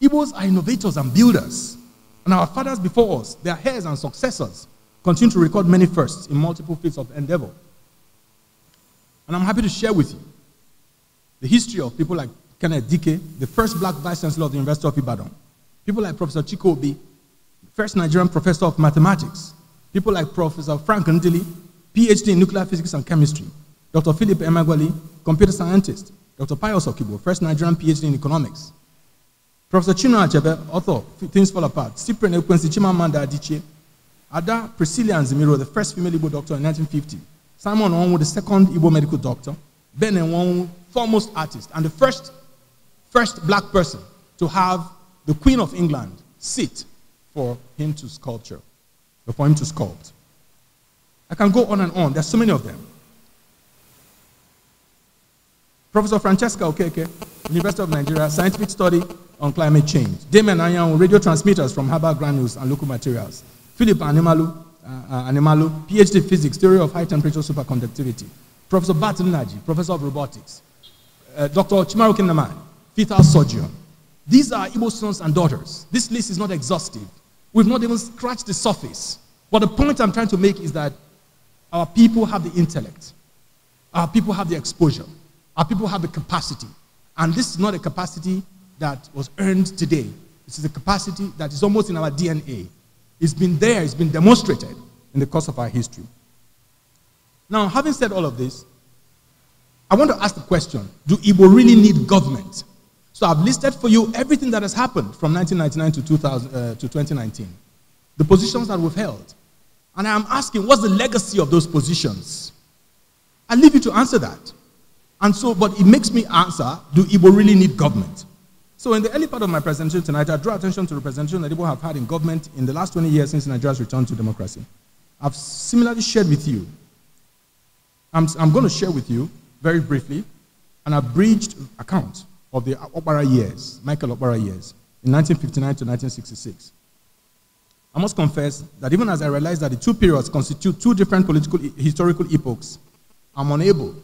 Igbos are innovators and builders, and our fathers before us, their heirs and successors, continue to record many firsts in multiple fields of endeavor. And I'm happy to share with you the history of people like Kenneth Dike, the first black vice chancellor of the University of Ibadan, people like Professor Chikobi, the first Nigerian professor of mathematics, people like Professor Frank Ndili, PhD in nuclear physics and chemistry, Dr. Philip Emagwali, computer scientist. Dr. Pius Okibo, first Nigerian PhD in economics. Professor Chinua Achebe, author, Things Fall Apart. Cyprian Ekwensi Chimamanda Adichie. Ada Priscilla Anzimiro, the first female Igbo doctor in 1950. Simon Onwu, the second Igbo medical doctor. Ben Onwu, foremost artist, and the first, first black person to have the Queen of England sit for him to sculpture, for him to sculpt. I can go on and on. There's so many of them. Professor Francesca Okeke, University of Nigeria, Scientific Study on Climate Change. Damon Anyanwu, Radio Transmitters from harbour Granules and Local Materials. Philip Animalu, uh, uh Animalu, PhD Physics, Theory of High Temperature Superconductivity. Professor Barton Naji, Professor of Robotics. Uh, Dr. Chimaru Kinnaman, fetal surgeon. These are Igbo sons and daughters. This list is not exhaustive. We've not even scratched the surface. But the point I'm trying to make is that our people have the intellect. Our people have the exposure. Our people have a capacity. And this is not a capacity that was earned today. This is a capacity that is almost in our DNA. It's been there, it's been demonstrated in the course of our history. Now, having said all of this, I want to ask the question do Igbo really need government? So I've listed for you everything that has happened from 1999 to, 2000, uh, to 2019, the positions that we've held. And I'm asking, what's the legacy of those positions? I leave you to answer that. And so, but it makes me answer, do Igbo really need government? So in the early part of my presentation tonight, I draw attention to the presentation that Igbo have had in government in the last 20 years since Nigeria's return to democracy. I've similarly shared with you, I'm, I'm going to share with you very briefly an abridged account of the Opera years, Michael Opera years, in 1959 to 1966. I must confess that even as I realise that the two periods constitute two different political historical epochs, I'm unable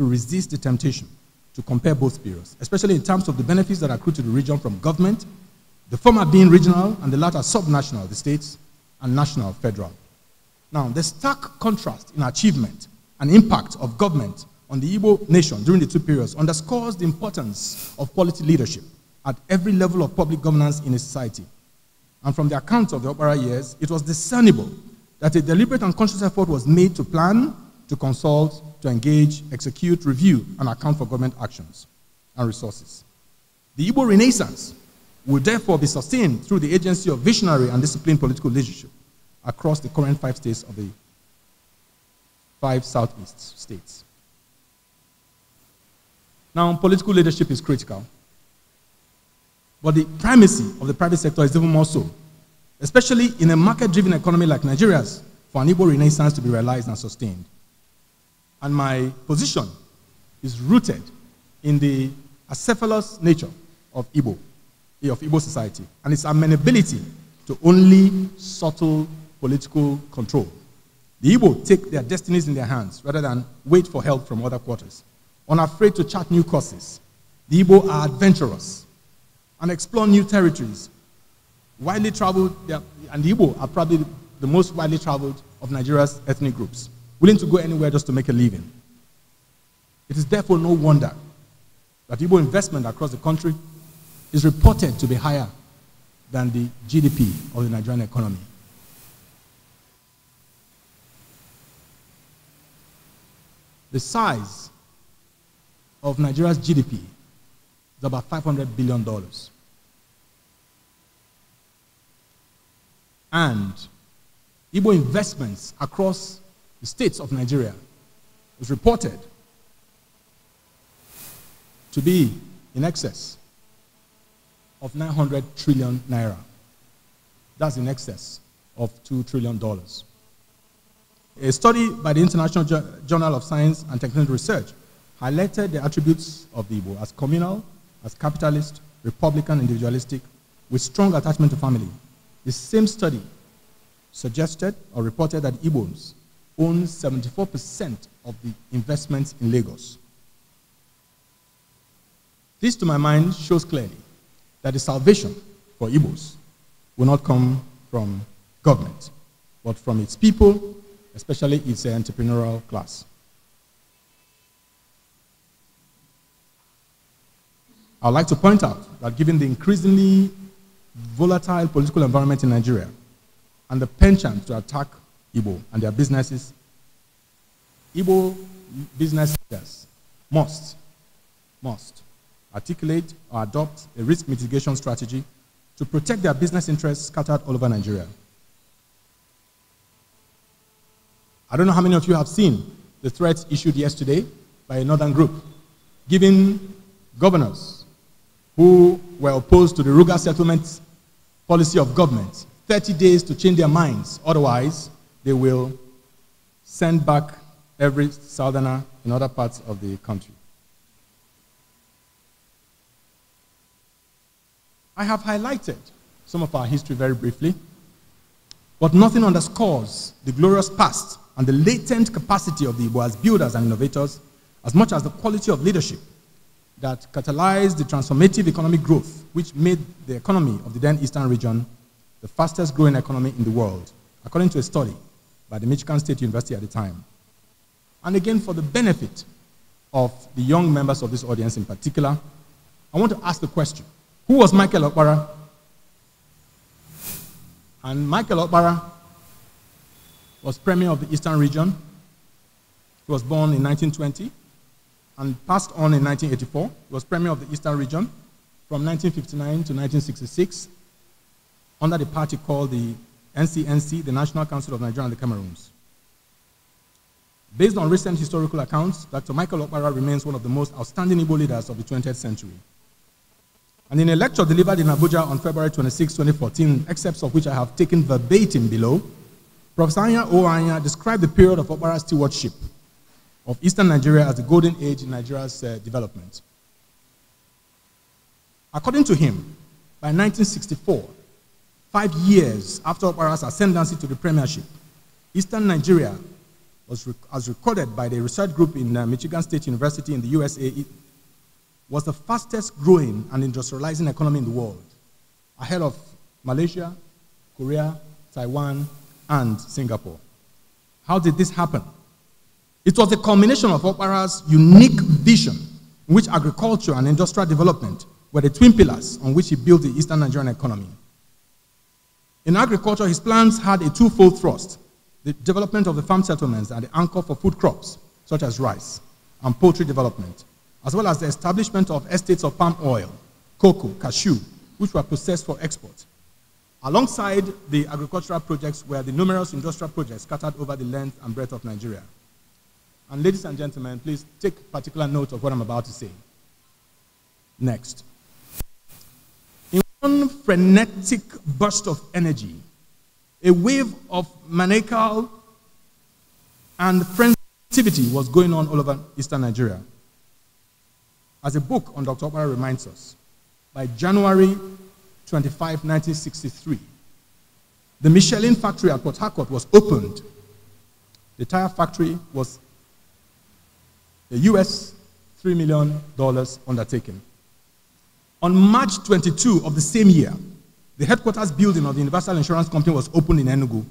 to resist the temptation to compare both periods, especially in terms of the benefits that accrue to the region from government, the former being regional and the latter subnational, the states, and national, federal. Now, the stark contrast in achievement and impact of government on the Igbo nation during the two periods underscores the importance of quality leadership at every level of public governance in a society. And from the accounts of the opera years, it was discernible that a deliberate and conscious effort was made to plan, to consult, to engage, execute, review, and account for government actions and resources. The Igbo Renaissance will therefore be sustained through the agency of visionary and disciplined political leadership across the current five states of the five southeast states. Now, political leadership is critical, but the primacy of the private sector is even more so, especially in a market-driven economy like Nigeria's, for an Igbo renaissance to be realized and sustained and my position is rooted in the acephalous nature of Igbo, eh, of Igbo society, and its amenability to only subtle political control. The Igbo take their destinies in their hands rather than wait for help from other quarters. Unafraid to chart new courses, the Igbo are adventurous and explore new territories. Widely traveled, and the Igbo are probably the most widely traveled of Nigeria's ethnic groups willing to go anywhere just to make a living. It is therefore no wonder that Igbo investment across the country is reported to be higher than the GDP of the Nigerian economy. The size of Nigeria's GDP is about $500 billion. And Igbo investments across the states of Nigeria, is reported to be in excess of 900 trillion naira. That's in excess of $2 trillion. A study by the International Journal of Science and Technology Research highlighted the attributes of the Igbo as communal, as capitalist, republican, individualistic, with strong attachment to family. The same study suggested or reported that Igbos owns 74% of the investments in Lagos. This, to my mind, shows clearly that the salvation for Igbos will not come from government, but from its people, especially its entrepreneurial class. I'd like to point out that given the increasingly volatile political environment in Nigeria and the penchant to attack Igbo and their businesses, Igbo business leaders must, must articulate or adopt a risk mitigation strategy to protect their business interests scattered all over Nigeria. I don't know how many of you have seen the threats issued yesterday by a northern group, giving governors who were opposed to the Ruga settlement policy of government 30 days to change their minds. Otherwise, they will send back every southerner in other parts of the country. I have highlighted some of our history very briefly, but nothing underscores the glorious past and the latent capacity of the Igbo as builders and innovators as much as the quality of leadership that catalyzed the transformative economic growth which made the economy of the then eastern region the fastest growing economy in the world, according to a study by the Michigan State University at the time. And again, for the benefit of the young members of this audience in particular, I want to ask the question Who was Michael Okpara? And Michael Okpara was Premier of the Eastern Region. He was born in 1920 and passed on in 1984. He was Premier of the Eastern Region from 1959 to 1966 under the party called the NCNC, the National Council of Nigeria and the Cameroons. Based on recent historical accounts, Dr. Michael Okpara remains one of the most outstanding Igbo leaders of the 20th century. And in a lecture delivered in Abuja on February 26, 2014, excerpts of which I have taken verbatim below, Professor Anya Oanya described the period of Okpara's stewardship of Eastern Nigeria as the golden age in Nigeria's uh, development. According to him, by 1964, Five years after Opara's ascendancy to the premiership, Eastern Nigeria was rec as recorded by the research group in uh, Michigan State University in the USA, it was the fastest growing and industrializing economy in the world, ahead of Malaysia, Korea, Taiwan, and Singapore. How did this happen? It was the culmination of Opara's unique vision, in which agriculture and industrial development were the twin pillars on which he built the Eastern Nigerian economy. In agriculture, his plans had a twofold thrust the development of the farm settlements and the anchor for food crops, such as rice and poultry development, as well as the establishment of estates of palm oil, cocoa, cashew, which were processed for export. Alongside the agricultural projects were the numerous industrial projects scattered over the length and breadth of Nigeria. And ladies and gentlemen, please take particular note of what I'm about to say. Next. In one frenetic burst of energy, a wave of maniacal and frenzy activity was going on all over eastern Nigeria. As a book on Dr. Opara reminds us, by January 25, 1963, the Michelin factory at Port Harcourt was opened. The tire factory was a US $3 million undertaking. On March 22 of the same year, the headquarters building of the Universal Insurance Company was opened in Enugu.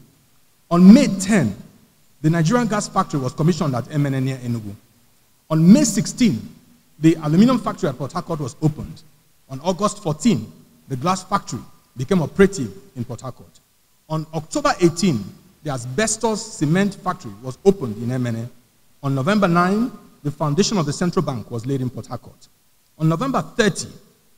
On May 10, the Nigerian gas factory was commissioned at MNN near Enugu. On May 16, the aluminum factory at Port Harcourt was opened. On August 14, the glass factory became operative in Port Harcourt. On October 18, the asbestos cement factory was opened in MNN. On November 9, the foundation of the central bank was laid in Port Harcourt. On November 30,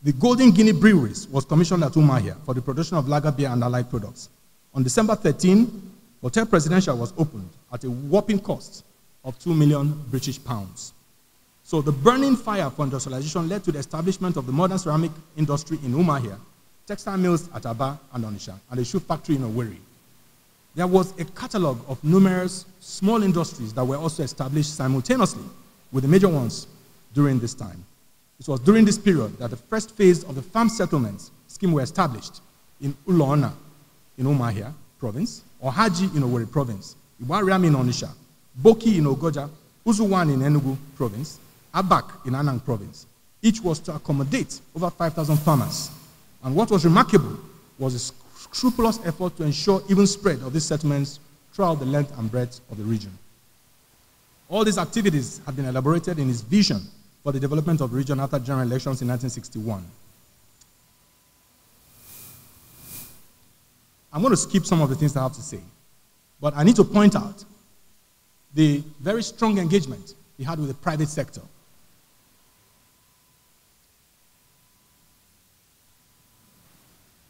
the Golden Guinea Breweries was commissioned at Umahia for the production of lager beer and allied products. On December 13, Hotel Presidential was opened at a whopping cost of 2 million British pounds. So the burning fire for industrialization led to the establishment of the modern ceramic industry in Umahia, textile mills at Aba and Onisha, and a shoe factory in Owerri. There was a catalog of numerous small industries that were also established simultaneously with the major ones during this time. It was during this period that the first phase of the farm settlements scheme were established in Ulona in Umahia province, Haji in Owerri province, Iwariam in Onisha, Boki in Ogoja, Uzuwan in Enugu province, Abak in Anang province. Each was to accommodate over 5,000 farmers. And what was remarkable was a scrupulous effort to ensure even spread of these settlements throughout the length and breadth of the region. All these activities have been elaborated in his vision for the development of the region after general elections in 1961. I'm going to skip some of the things I have to say, but I need to point out the very strong engagement he had with the private sector.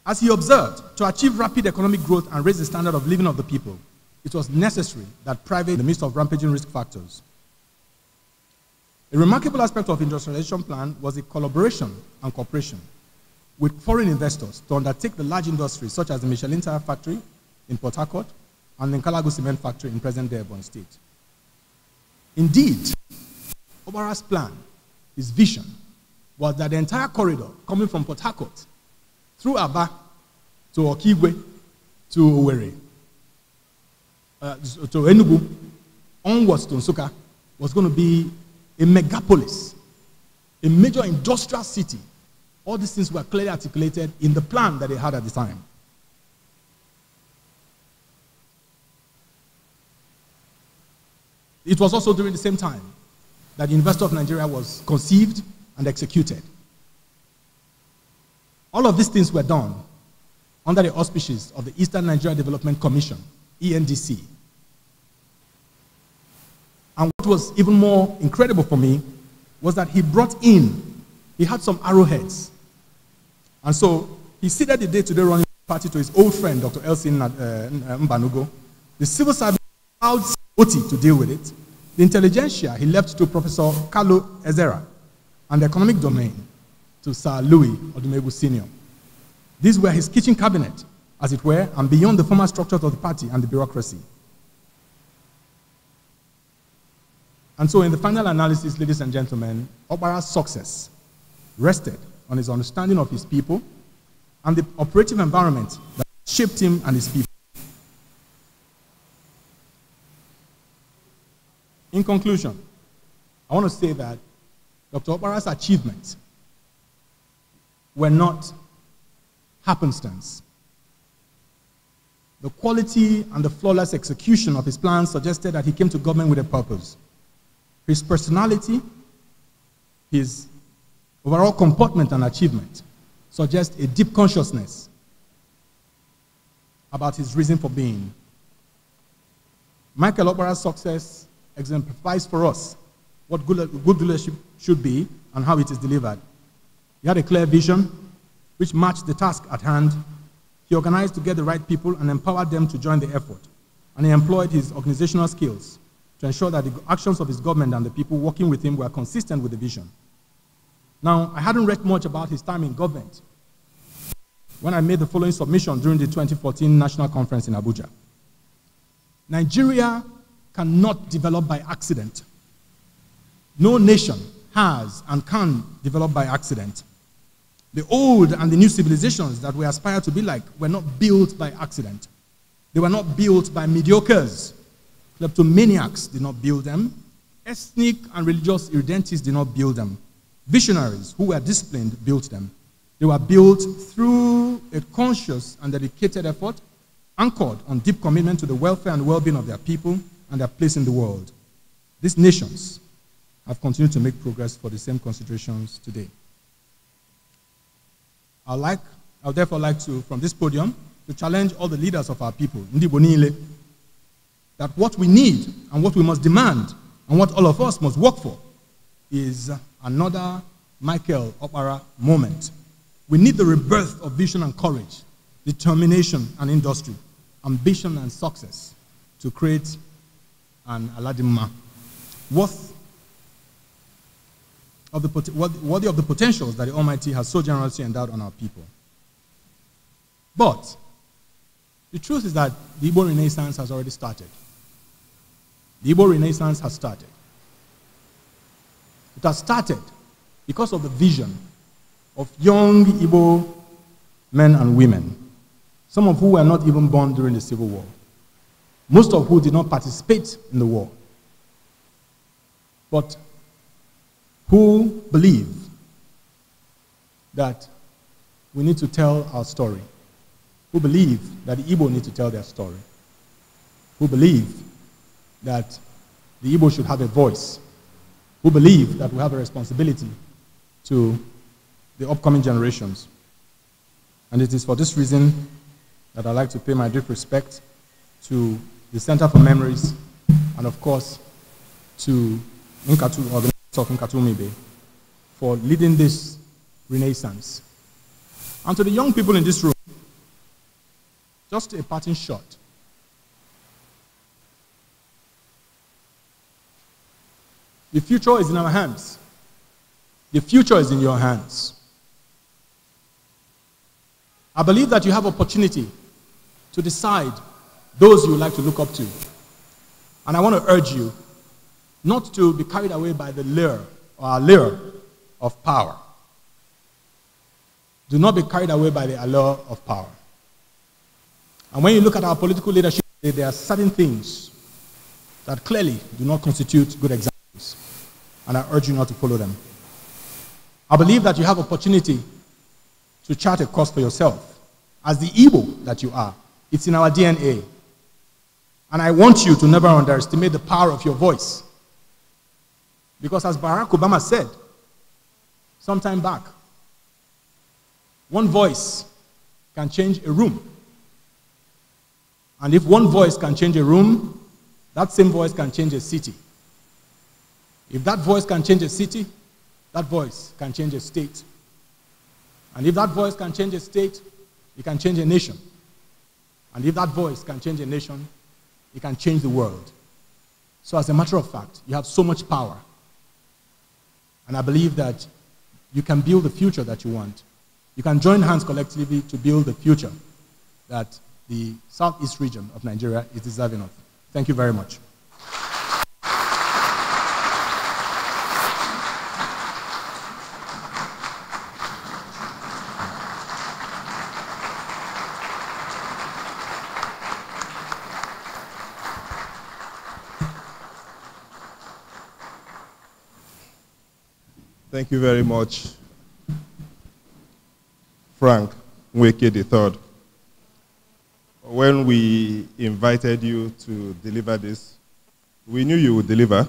As he observed, to achieve rapid economic growth and raise the standard of living of the people, it was necessary that private, in the midst of rampaging risk factors, a remarkable aspect of industrialization plan was the collaboration and cooperation with foreign investors to undertake the large industries such as the Michelin Tire Factory in Port Harcourt and the Nkalago Cement Factory in present-day Ebon State. Indeed, Obara's plan, his vision, was that the entire corridor coming from Port Harcourt through Aba to Okigwe to Owerri, uh, to Enugu, onwards to Nsuka, was going to be a megapolis, a major industrial city. All these things were clearly articulated in the plan that they had at the time. It was also during the same time that the University of Nigeria was conceived and executed. All of these things were done under the auspices of the Eastern Nigeria Development Commission, ENDC, and what was even more incredible for me was that he brought in, he had some arrowheads. And so he seated the day to day running party to his old friend, Dr. Elsin uh, uh, Mbanugo. The civil service allowed Oti to deal with it. The intelligentsia he left to Professor Carlo Ezera. And the economic domain to Sir Louis Odumegu Sr. These were his kitchen cabinet, as it were, and beyond the formal structures of the party and the bureaucracy. And so, in the final analysis, ladies and gentlemen, Obara's success rested on his understanding of his people and the operative environment that shaped him and his people. In conclusion, I want to say that Dr. Obara's achievements were not happenstance. The quality and the flawless execution of his plans suggested that he came to government with a purpose his personality, his overall comportment and achievement suggest a deep consciousness about his reason for being. Michael Opera's success exemplifies for us what good, good leadership should be and how it is delivered. He had a clear vision which matched the task at hand. He organized to get the right people and empowered them to join the effort. And he employed his organizational skills to ensure that the actions of his government and the people working with him were consistent with the vision. Now, I hadn't read much about his time in government when I made the following submission during the 2014 National Conference in Abuja. Nigeria cannot develop by accident. No nation has and can develop by accident. The old and the new civilizations that we aspire to be like were not built by accident. They were not built by mediocres Kleptomaniacs did not build them. Ethnic and religious irredentists did not build them. Visionaries who were disciplined built them. They were built through a conscious and dedicated effort anchored on deep commitment to the welfare and well-being of their people and their place in the world. These nations have continued to make progress for the same considerations today. I'd like, I'd therefore like to, from this podium, to challenge all the leaders of our people, Ndibonile, that what we need and what we must demand and what all of us must work for is another Michael Opera moment. We need the rebirth of vision and courage, determination and industry, ambition and success to create an Aladdin worth of the, worthy of the potentials that the Almighty has so generously endowed on our people. But the truth is that the Igbo Renaissance has already started. The Igbo Renaissance has started. It has started because of the vision of young Igbo men and women, some of who were not even born during the Civil War, most of who did not participate in the war, but who believe that we need to tell our story, who believe that the Igbo need to tell their story, who believe that the Igbo should have a voice, who believe that we have a responsibility to the upcoming generations. And it is for this reason that I'd like to pay my deep respect to the Center for Memories and, of course, to Nkatu, organizers of Nkatu for leading this renaissance. And to the young people in this room, just a parting shot. The future is in our hands. The future is in your hands. I believe that you have opportunity to decide those you like to look up to. And I want to urge you not to be carried away by the lure or allure of power. Do not be carried away by the allure of power. And when you look at our political leadership, there are certain things that clearly do not constitute good examples and I urge you not to follow them. I believe that you have opportunity to chart a course for yourself as the evil that you are. It's in our DNA. And I want you to never underestimate the power of your voice. Because as Barack Obama said some time back, one voice can change a room. And if one voice can change a room, that same voice can change a city. If that voice can change a city, that voice can change a state. And if that voice can change a state, it can change a nation. And if that voice can change a nation, it can change the world. So, as a matter of fact, you have so much power. And I believe that you can build the future that you want. You can join hands collectively to build the future that the Southeast region of Nigeria is deserving of. Thank you very much. Thank you very much, Frank Mweke III. When we invited you to deliver this, we knew you would deliver.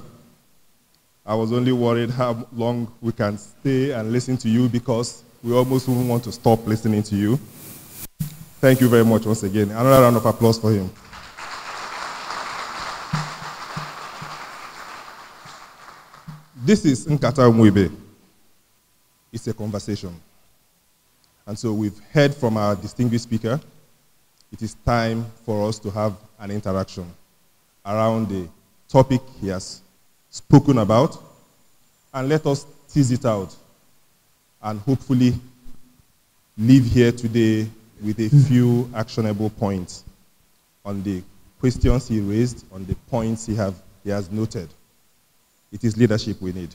I was only worried how long we can stay and listen to you because we almost wouldn't want to stop listening to you. Thank you very much once again. Another round of applause for him. This is Nkata Mwibe it's a conversation. And so we've heard from our distinguished speaker. It is time for us to have an interaction around the topic he has spoken about. And let us tease it out and hopefully leave here today with a few actionable points on the questions he raised, on the points he, have, he has noted. It is leadership we need.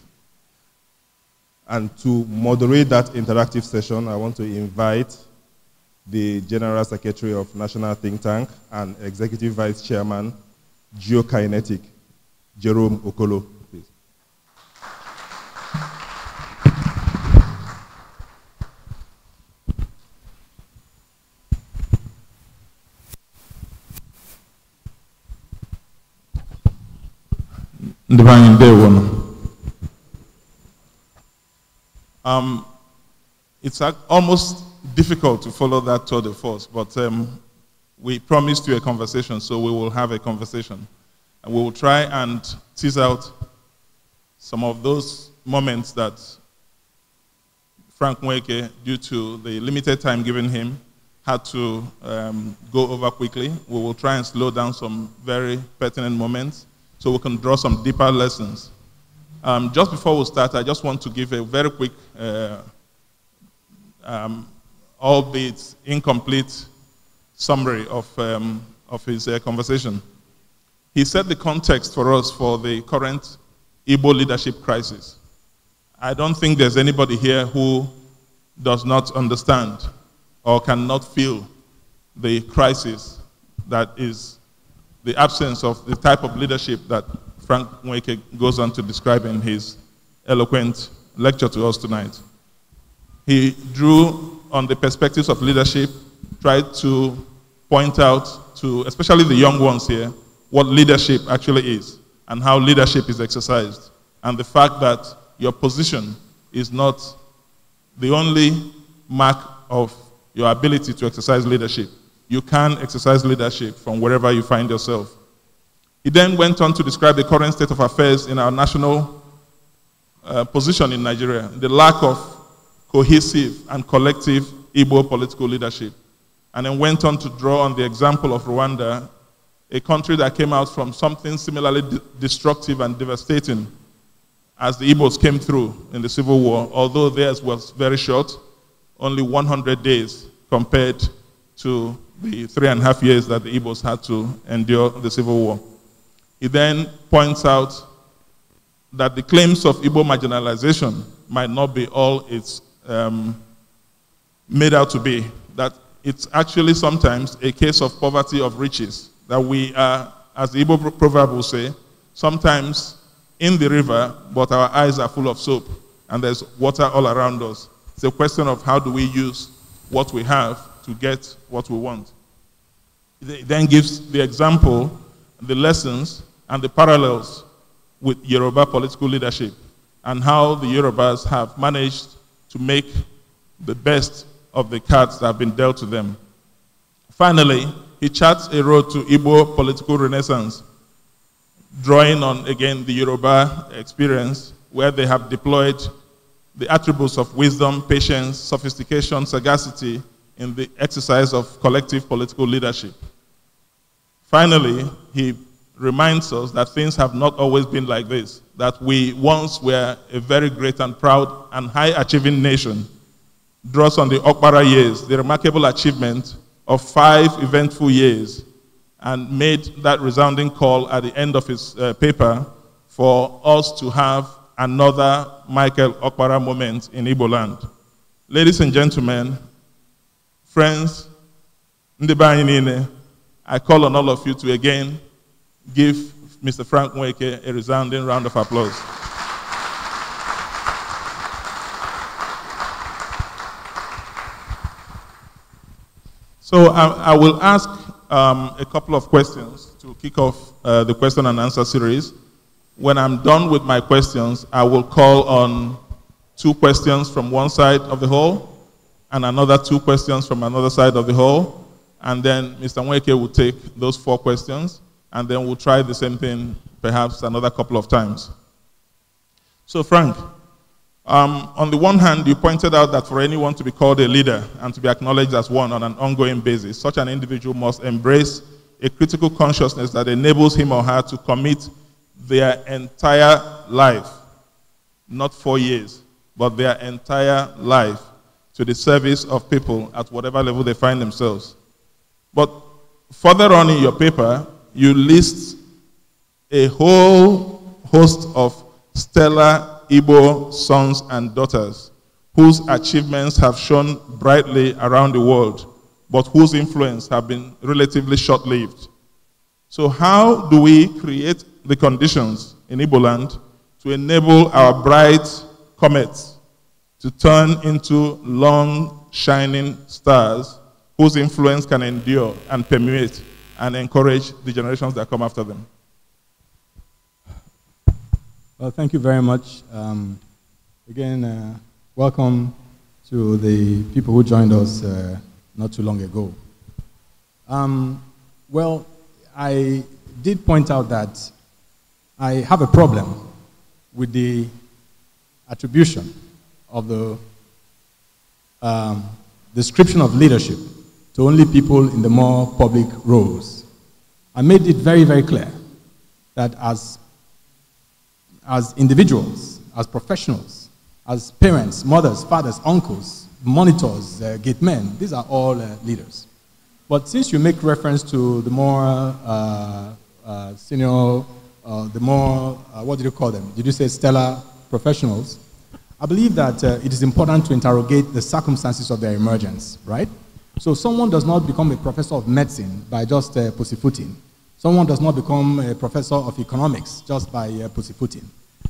And to moderate that interactive session, I want to invite the General Secretary of National Think Tank and Executive Vice Chairman, Geokinetic, Jerome Okolo. Please. Divine Day One. Um, it's almost difficult to follow that tour de force, but um, we promised you a conversation, so we will have a conversation. And we will try and tease out some of those moments that Frank Mweke, due to the limited time given him, had to um, go over quickly. We will try and slow down some very pertinent moments so we can draw some deeper lessons um, just before we start, I just want to give a very quick, uh, um, albeit incomplete, summary of, um, of his uh, conversation. He set the context for us for the current Igbo leadership crisis. I don't think there's anybody here who does not understand or cannot feel the crisis that is the absence of the type of leadership that Frank Mweke goes on to describe in his eloquent lecture to us tonight. He drew on the perspectives of leadership, tried to point out to, especially the young ones here, what leadership actually is and how leadership is exercised. And the fact that your position is not the only mark of your ability to exercise leadership. You can exercise leadership from wherever you find yourself he then went on to describe the current state of affairs in our national uh, position in Nigeria, the lack of cohesive and collective Igbo political leadership, and then went on to draw on the example of Rwanda, a country that came out from something similarly destructive and devastating as the Igbos came through in the Civil War, although theirs was very short, only 100 days compared to the three and a half years that the Igbos had to endure the Civil War. He then points out that the claims of Igbo marginalization might not be all it's um, made out to be, that it's actually sometimes a case of poverty of riches, that we are, as the Igbo proverb will say, sometimes in the river, but our eyes are full of soap, and there's water all around us. It's a question of how do we use what we have to get what we want. It then gives the example, the lessons and the parallels with Yoruba political leadership and how the Yorubas have managed to make the best of the cards that have been dealt to them. Finally, he charts a road to Igbo political renaissance, drawing on again the Yoruba experience where they have deployed the attributes of wisdom, patience, sophistication, sagacity in the exercise of collective political leadership. Finally, he reminds us that things have not always been like this, that we once were a very great and proud and high achieving nation. Draws on the Okpara years, the remarkable achievement of five eventful years, and made that resounding call at the end of his uh, paper for us to have another Michael Okpara moment in Igbo land. Ladies and gentlemen, friends, I call on all of you to again give Mr. Frank Mweke a resounding round of applause. So I, I will ask um, a couple of questions to kick off uh, the question and answer series. When I'm done with my questions, I will call on two questions from one side of the hall and another two questions from another side of the hall. And then Mr. Mweke will take those four questions and then we'll try the same thing perhaps another couple of times. So, Frank, um, on the one hand, you pointed out that for anyone to be called a leader and to be acknowledged as one on an ongoing basis, such an individual must embrace a critical consciousness that enables him or her to commit their entire life, not four years, but their entire life to the service of people at whatever level they find themselves. But further on in your paper, you list a whole host of stellar Igbo sons and daughters whose achievements have shone brightly around the world, but whose influence have been relatively short-lived. So how do we create the conditions in Ibo land to enable our bright comets to turn into long, shining stars whose influence can endure and permeate and encourage the generations that come after them. Well, thank you very much. Um, again, uh, welcome to the people who joined us uh, not too long ago. Um, well, I did point out that I have a problem with the attribution of the um, description of leadership to only people in the more public roles. I made it very, very clear that as, as individuals, as professionals, as parents, mothers, fathers, uncles, monitors, uh, gate men, these are all uh, leaders. But since you make reference to the more uh, uh, senior, uh, the more, uh, what did you call them? Did you say stellar professionals? I believe that uh, it is important to interrogate the circumstances of their emergence, right? So someone does not become a professor of medicine by just uh, pussyfooting. Someone does not become a professor of economics just by uh, pussyfooting.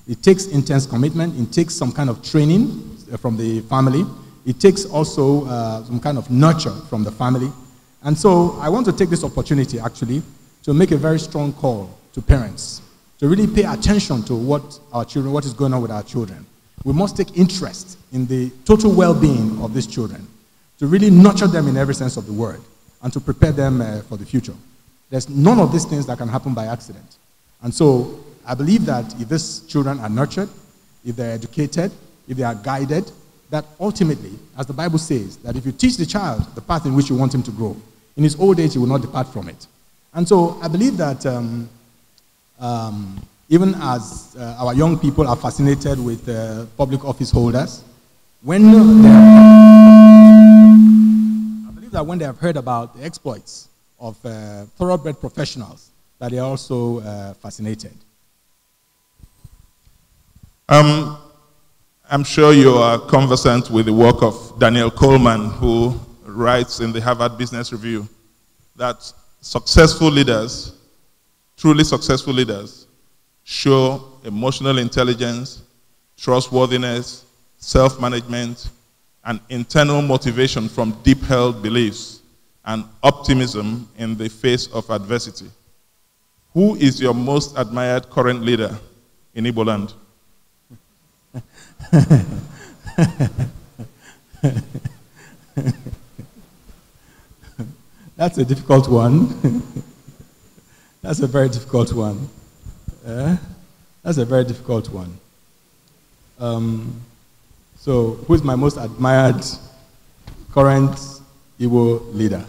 It takes intense commitment. It takes some kind of training uh, from the family. It takes also uh, some kind of nurture from the family. And so I want to take this opportunity, actually, to make a very strong call to parents to really pay attention to what our children, what is going on with our children. We must take interest in the total well-being of these children to really nurture them in every sense of the word and to prepare them uh, for the future. There's none of these things that can happen by accident. And so I believe that if these children are nurtured, if they're educated, if they are guided, that ultimately, as the Bible says, that if you teach the child the path in which you want him to grow, in his old age he will not depart from it. And so I believe that um, um, even as uh, our young people are fascinated with uh, public office holders, when they believe that when they have heard about the exploits of uh, thoroughbred professionals, that they are also uh, fascinated. Um, I'm sure you are conversant with the work of Daniel Coleman, who writes in the Harvard Business Review that successful leaders, truly successful leaders, show emotional intelligence, trustworthiness, self management, and internal motivation from deep held beliefs and optimism in the face of adversity. Who is your most admired current leader in Igbo land? That's a difficult one. That's a very difficult one. Uh, that's a very difficult one. Um, so, who is my most admired current Igbo leader?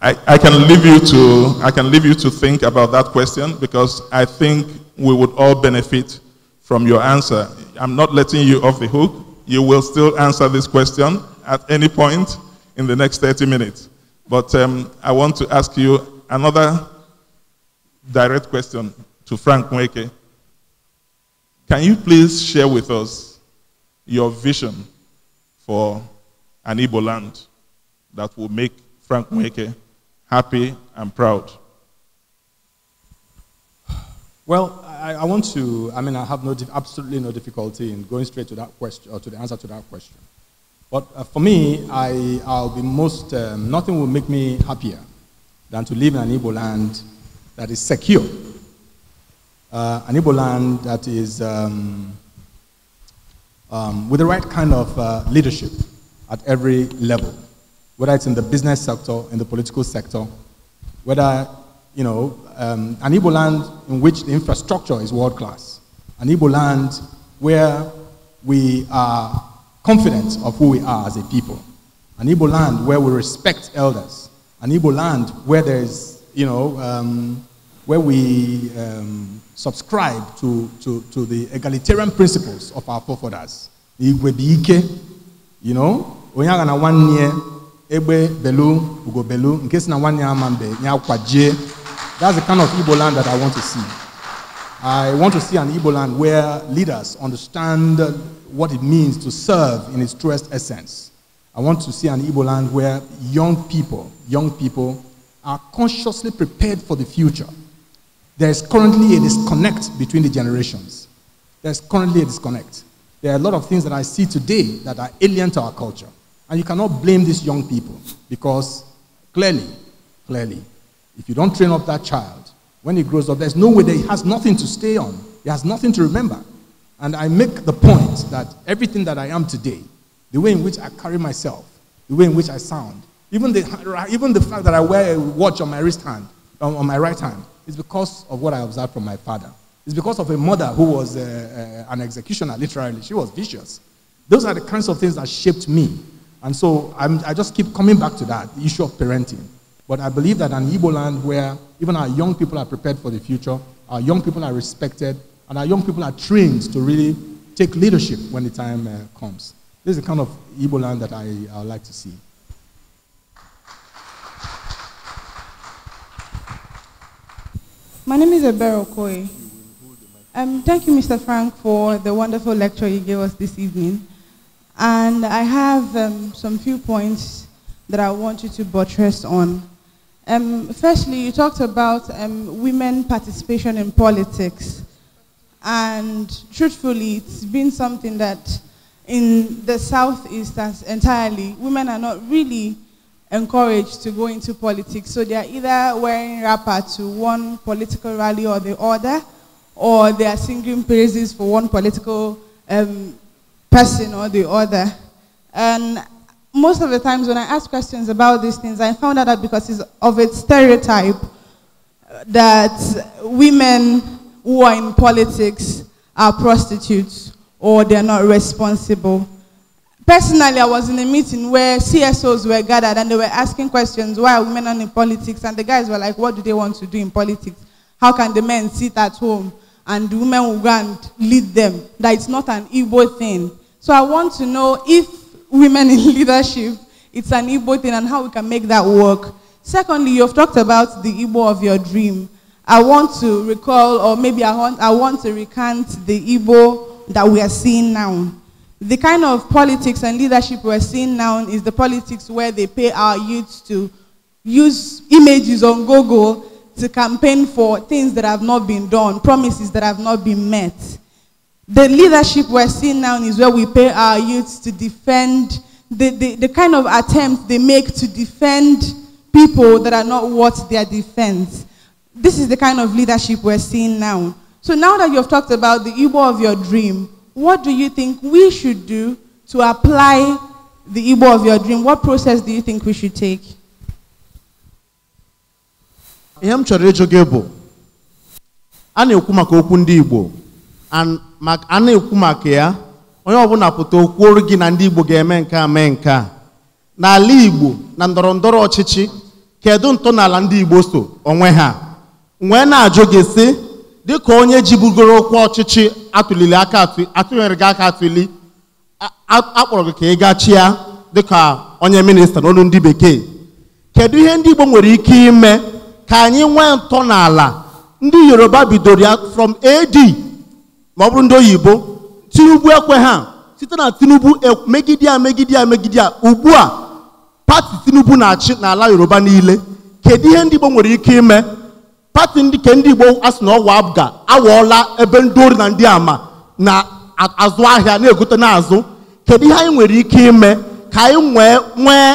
I, I, can leave you to, I can leave you to think about that question because I think we would all benefit from your answer. I'm not letting you off the hook. You will still answer this question at any point in the next 30 minutes. But um, I want to ask you another direct question to Frank Mweke. Can you please share with us your vision for an Igbo land that will make Frank Mweke happy and proud? Well, I, I, want to, I mean, I have no, absolutely no difficulty in going straight to that question, or to the answer to that question. But uh, for me, I, I'll be most, um, nothing will make me happier than to live in an Igbo land that is secure. Uh, an Igbo land that is um, um, with the right kind of uh, leadership at every level, whether it's in the business sector, in the political sector, whether, you know, um, an Igbo land in which the infrastructure is world class, an Igbo land where we are confident of who we are as a people, an Igbo land where we respect elders, an Igbo land where there's, you know, um, where we um, subscribe to, to, to the egalitarian principles of our forefathers. you know, onye agha na nwanne Ebe belu ugo belu In case na nwanne ya ama mbe That's the kind of Igbo land that I want to see. I want to see an Igbo land where leaders understand what it means to serve in its truest essence. I want to see an Igbo land where young people, young people are consciously prepared for the future. There is currently a disconnect between the generations. There's currently a disconnect. There are a lot of things that I see today that are alien to our culture. And you cannot blame these young people because clearly, clearly, if you don't train up that child, when he grows up, there's no way that he has nothing to stay on. He has nothing to remember. And I make the point that everything that I am today, the way in which I carry myself, the way in which I sound, even the, even the fact that I wear a watch on my wrist hand, on, um, on my right hand, it's because of what I observed from my father. It's because of a mother who was uh, uh, an executioner, literally. She was vicious. Those are the kinds of things that shaped me. And so I'm, i just keep coming back to that the issue of parenting. But I believe that an Igbo land where even our young people are prepared for the future, our young people are respected, and our young people are trained to really take leadership when the time uh, comes. This is the kind of Igbo land that I, I like to see. My name is Ebero Okoye. Um, thank you, Mr. Frank, for the wonderful lecture you gave us this evening. And I have um, some few points that I want you to buttress on. Um, firstly, you talked about um, women participation in politics. And truthfully, it's been something that in the Southeast entirely, women are not really encouraged to go into politics. So they are either wearing wrapper to one political rally or the other, or they are singing praises for one political um, person or the other. And most of the times when I ask questions about these things, I found out that because it's of its stereotype that women who are in politics are prostitutes or they're not responsible. Personally, I was in a meeting where CSOs were gathered and they were asking questions, why are women not in politics? And the guys were like, what do they want to do in politics? How can the men sit at home and the women will go and lead them? That it's not an Igbo thing. So I want to know if women in leadership, it's an Igbo thing and how we can make that work. Secondly, you've talked about the Igbo of your dream. I want to recall, or maybe I want, I want to recant the Igbo that we are seeing now the kind of politics and leadership we're seeing now is the politics where they pay our youths to use images on Google to campaign for things that have not been done, promises that have not been met. The leadership we're seeing now is where we pay our youths to defend the, the, the kind of attempt they make to defend people that are not worth their defense. This is the kind of leadership we're seeing now. So now that you've talked about the Igbo of your dream, What do you think we should do to apply the Igbo of your dream? What process do you think we should take? ihe m chọrọ ịjụ gị bụ a na-ekwu maka okwu ndị Igbo a na-ekwu maka ya onye ọbụla pụta okwuoru gị na ndị Igbo ga-eme nke a mee nke a n'ala Igbo na ndọrọ ndọrọ ọchịchị kedu ntọala ndị Igbo so onwe ha wee na-ajụ gị sị dịka onye ji bugoro okwu ọchịchị atụlili aka atụnyere gị aka atụli akpọrọ gị ka ị gachia dịka onye minista n'olu ndị bekee kedu ihe ndị Igbo nwere ike ime ka anyị nwee ntọ n'ala ndị Yoruba bidoro ya from AD ma ọ bụrụ ndị oyibo Tinubu ekwe ha site na Tinubu e, megide ya megide megide ugbu a pati Tinubu na-achị n'ala Yoruba niile kedu ihe ndị Igbo nwere ike ime pati ndị ke ndị igbo asị na ọwa abga awọọla ebe ndị ori na ndị ama na-azụ ahịa na-egote n'azụ kedu ihe anyị nwere ike ime ka anyị nwee nwee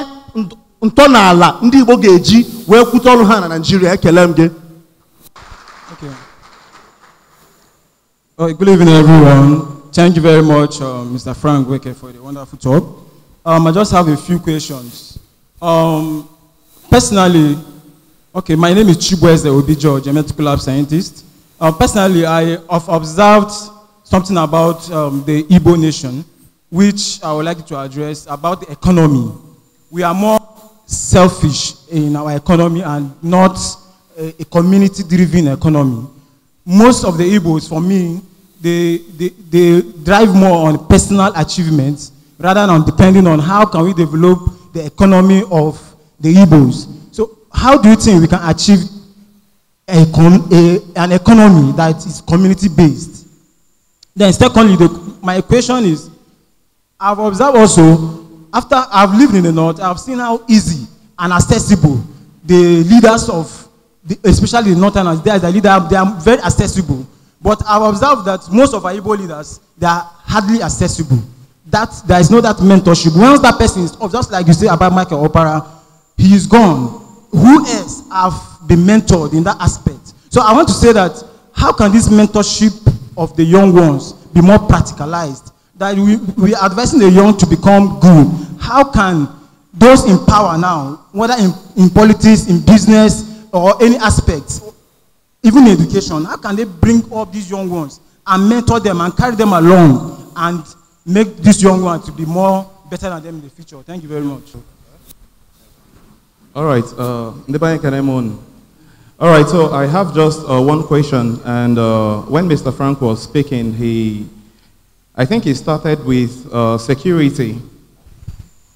ntọala ndị igbo ga-eji wee kwute ọrụ ha na naijiria ekele m gị Good evening, everyone. Thank you very much, uh, Mr. Frank Weke, for the wonderful talk. Um, I just have a few questions. Um, personally, Okay, my name is Chibweze Obijo, genetic lab scientist. Uh, personally, I have observed something about um, the Igbo nation, which I would like to address about the economy. We are more selfish in our economy and not a, a community-driven economy. Most of the Igbos, for me, they, they, they drive more on personal achievements rather than depending on how can we develop the economy of the Igbos how do you think we can achieve a, a, an economy that is community based? Then, secondly, the, my question is I've observed also, after I've lived in the North, I've seen how easy and accessible the leaders of, the, especially the Northerners, they are, the leader, they are very accessible. But I've observed that most of our Igbo leaders, they are hardly accessible. That there is no that mentorship. Once that person is, just like you say about Michael Opera, he is gone. who else have been mentored in that aspect? So I want to say that how can this mentorship of the young ones be more practicalized? That we, we are advising the young to become good. How can those in power now, whether in, in politics, in business, or any aspect, even education, how can they bring up these young ones and mentor them and carry them along and make these young ones to be more better than them in the future? Thank you very much. All right, uh, Ndebanye Kanemon. All right, so I have just uh, one question. And uh, when Mr. Frank was speaking, he, I think he started with uh, security.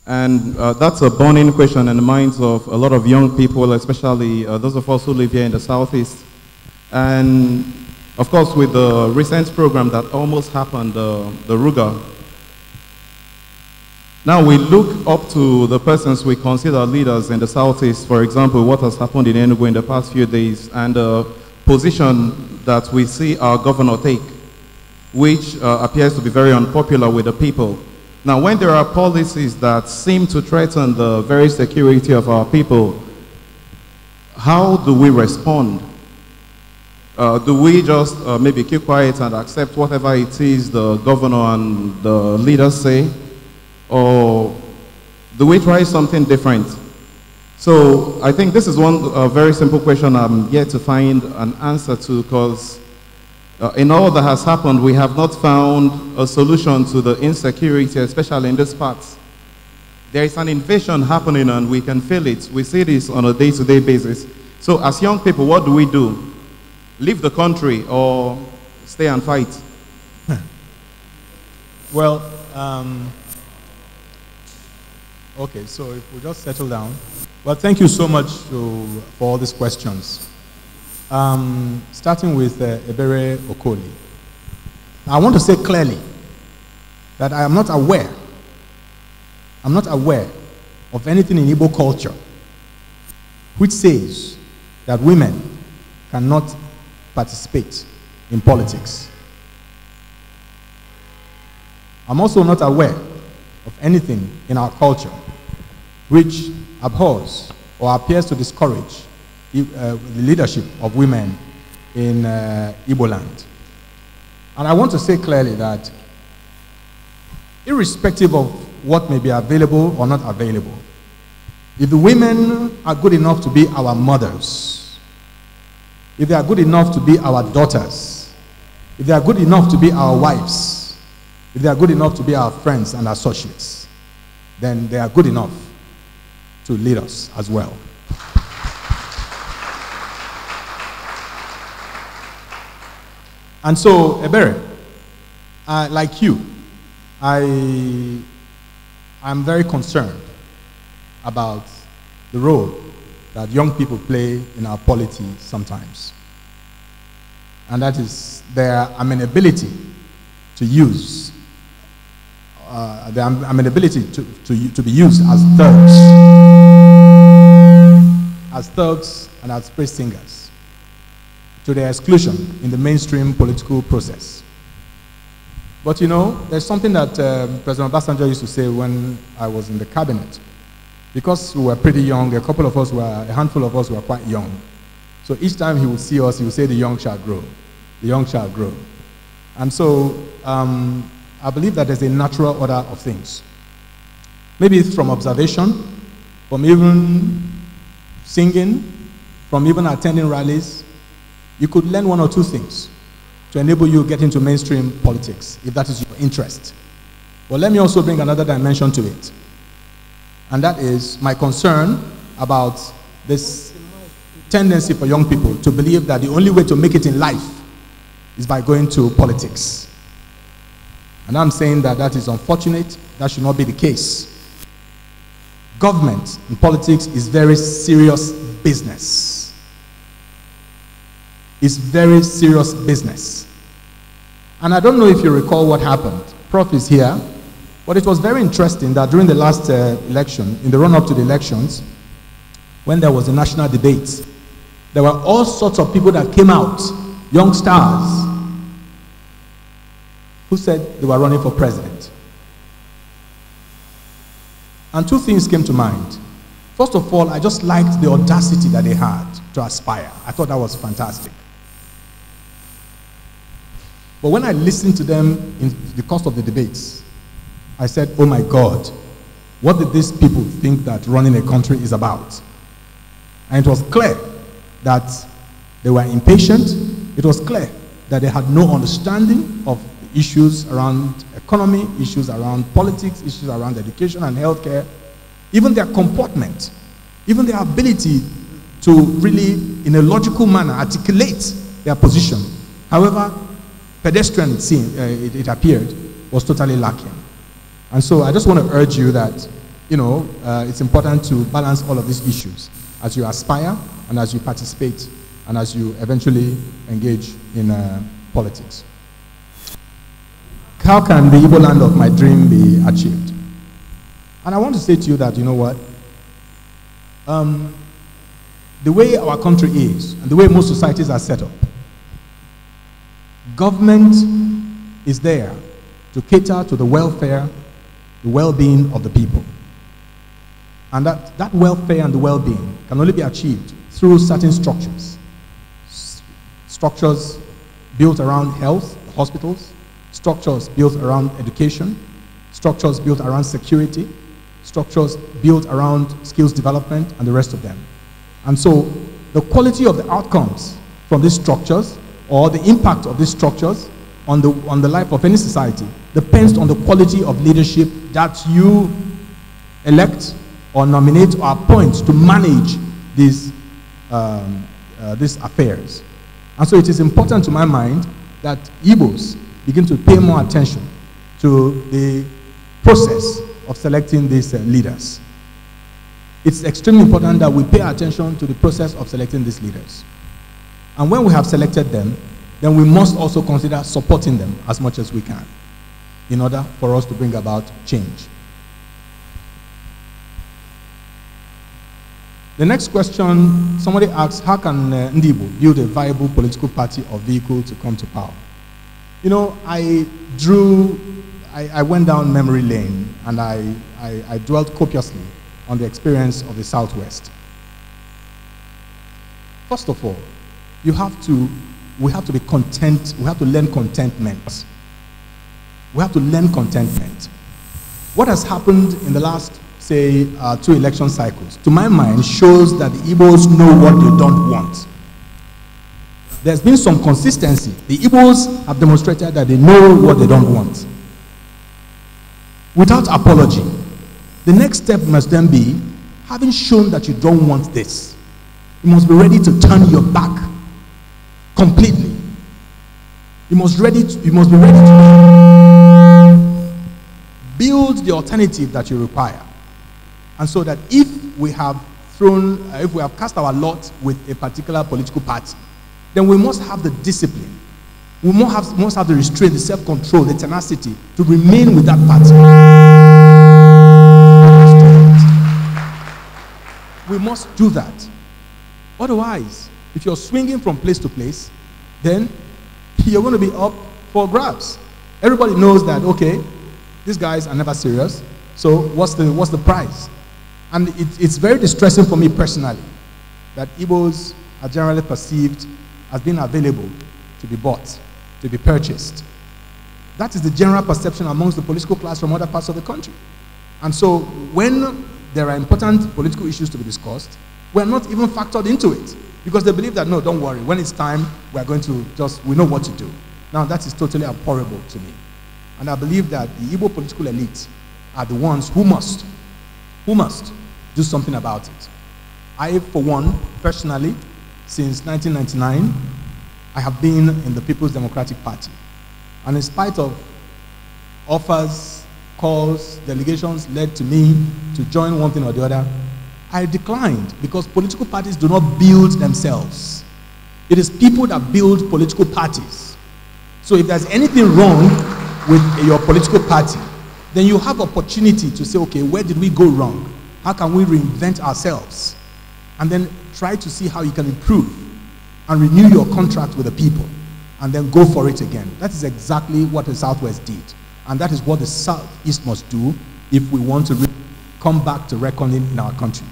And uh, that's a burning question in the minds of a lot of young people, especially uh, those of us who live here in the Southeast. And of course, with the recent program that almost happened, the Ruga, now we look up to the persons we consider leaders in the Southeast, for example, what has happened in Enugu in the past few days, and the position that we see our governor take, which uh, appears to be very unpopular with the people. Now, when there are policies that seem to threaten the very security of our people, how do we respond? Uh, do we just uh, maybe keep quiet and accept whatever it is the governor and the leaders say? or do we try something different? So I think this is one uh, very simple question I'm yet to find an answer to because uh, in all that has happened, we have not found a solution to the insecurity, especially in this part. There is an invasion happening and we can feel it. We see this on a day-to-day -day basis. So as young people, what do we do? Leave the country or stay and fight? well, um Okay, so if we just settle down. Well, thank you so much to, for all these questions. Um, starting with uh, Ebere Okoli. I want to say clearly that I am not aware, I'm not aware of anything in Igbo culture which says that women cannot participate in politics. I'm also not aware of anything in our culture which abhors or appears to discourage uh, the leadership of women in uh, Igbo land. And I want to say clearly that irrespective of what may be available or not available, if the women are good enough to be our mothers, if they are good enough to be our daughters, if they are good enough to be our wives, if they are good enough to be our friends and associates, then they are good enough to lead us as well. And so, Ebere, uh, like you, I am very concerned about the role that young people play in our polity sometimes. And that is their amenability to use uh, the amenability to, to, to be used as thugs, as thugs and as praise singers, to their exclusion in the mainstream political process. But you know, there's something that um, President Obasanjo used to say when I was in the cabinet. Because we were pretty young, a couple of us were, a handful of us were quite young. So each time he would see us, he would say, the young shall grow. The young shall grow. And so um, I believe that there's a natural order of things. Maybe it's from observation, from even singing, from even attending rallies. You could learn one or two things to enable you to get into mainstream politics if that is your interest. But let me also bring another dimension to it. And that is my concern about this tendency for young people to believe that the only way to make it in life is by going to politics. And I'm saying that that is unfortunate. That should not be the case. Government in politics is very serious business. It's very serious business. And I don't know if you recall what happened. Prof is here. But it was very interesting that during the last uh, election, in the run up to the elections, when there was a national debate, there were all sorts of people that came out, young stars, who said they were running for president. And two things came to mind. First of all, I just liked the audacity that they had to aspire. I thought that was fantastic. But when I listened to them in the course of the debates, I said, oh my God, what did these people think that running a country is about? And it was clear that they were impatient. It was clear that they had no understanding of issues around economy, issues around politics, issues around education and healthcare, even their comportment, even their ability to really, in a logical manner, articulate their position. However, pedestrian, it, seemed, uh, it, it appeared, was totally lacking. And so I just want to urge you that, you know, uh, it's important to balance all of these issues as you aspire and as you participate and as you eventually engage in uh, politics. How can the evil land of my dream be achieved? And I want to say to you that, you know what? Um, the way our country is, and the way most societies are set up, government is there to cater to the welfare, the well being of the people. And that, that welfare and the well being can only be achieved through certain structures. Structures built around health, hospitals, structures built around education, structures built around security, structures built around skills development, and the rest of them. And so the quality of the outcomes from these structures or the impact of these structures on the, on the life of any society depends on the quality of leadership that you elect or nominate or appoint to manage these, um, uh, these affairs. And so it is important to my mind that Igbos begin to pay more attention to the process of selecting these uh, leaders. It's extremely important that we pay attention to the process of selecting these leaders. And when we have selected them, then we must also consider supporting them as much as we can in order for us to bring about change. The next question, somebody asks, how can uh, Ndibu build a viable political party or vehicle to come to power? you know, I drew, I, I went down memory lane and I, I, I dwelt copiously on the experience of the Southwest. First of all, you have to, we have to be content, we have to learn contentment. We have to learn contentment. What has happened in the last, say, uh, two election cycles, to my mind, shows that the Igbos know what they don't want there's been some consistency. The Igbos have demonstrated that they know what they don't want. Without apology, the next step must then be having shown that you don't want this, you must be ready to turn your back completely. You must, ready to, you must be ready to build the alternative that you require. And so that if we have thrown, uh, if we have cast our lot with a particular political party, then we must have the discipline. We must have, must have the restraint, the self control, the tenacity to remain with that party. We must do that. Otherwise, if you're swinging from place to place, then you're going to be up for grabs. Everybody knows that, okay, these guys are never serious, so what's the, what's the price? And it, it's very distressing for me personally that Igbos are generally perceived as being available to be bought, to be purchased. That is the general perception amongst the political class from other parts of the country. And so when there are important political issues to be discussed, we're not even factored into it because they believe that, no, don't worry, when it's time, we're going to just, we know what to do. Now, that is totally abhorrible to me. And I believe that the Igbo political elite are the ones who must, who must do something about it. I, for one, personally, since 1999, I have been in the People's Democratic Party. And in spite of offers, calls, delegations led to me to join one thing or the other, I declined because political parties do not build themselves. It is people that build political parties. So if there's anything wrong with your political party, then you have opportunity to say, okay, where did we go wrong? How can we reinvent ourselves? And then Try to see how you can improve and renew your contract with the people and then go for it again. That is exactly what the Southwest did. And that is what the Southeast must do if we want to come back to reckoning in our country.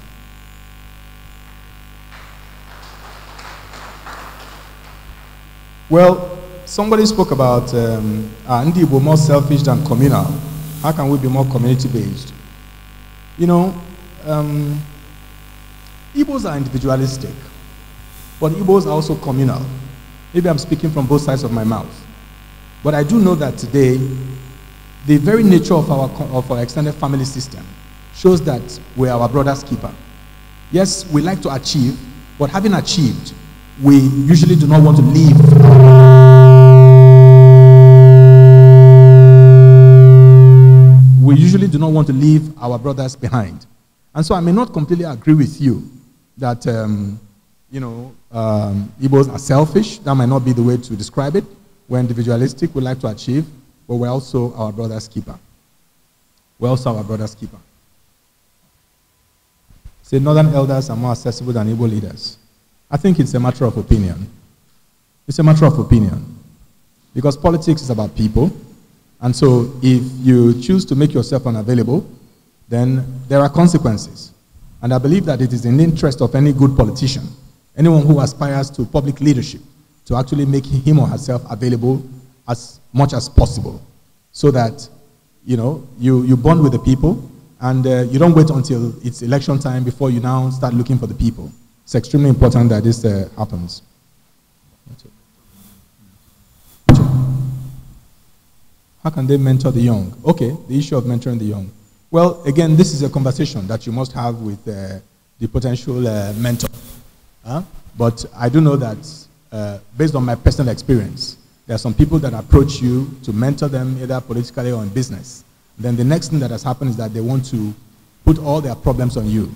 Well, somebody spoke about um, are ah, we more selfish than communal? How can we be more community based? You know, um, Igbos are individualistic, but Igbos are also communal. Maybe I'm speaking from both sides of my mouth. But I do know that today, the very nature of our, of our extended family system shows that we're our brother's keeper. Yes, we like to achieve, but having achieved, we usually do not want to leave we usually do not want to leave our brothers behind. And so I may not completely agree with you that, um, you know, um, Igbos are selfish. That might not be the way to describe it. We're individualistic, we like to achieve, but we're also our brother's keeper. We're also our brother's keeper. Say, Northern elders are more accessible than Igbo leaders. I think it's a matter of opinion. It's a matter of opinion. Because politics is about people. And so if you choose to make yourself unavailable, then there are consequences. And I believe that it is in the interest of any good politician, anyone who aspires to public leadership, to actually make him or herself available as much as possible so that you know you, you bond with the people and uh, you don't wait until it's election time before you now start looking for the people. It's extremely important that this uh, happens. How can they mentor the young? Okay, the issue of mentoring the young. Well, again, this is a conversation that you must have with uh, the potential uh, mentor. Huh? But I do know that, uh, based on my personal experience, there are some people that approach you to mentor them either politically or in business. Then the next thing that has happened is that they want to put all their problems on you.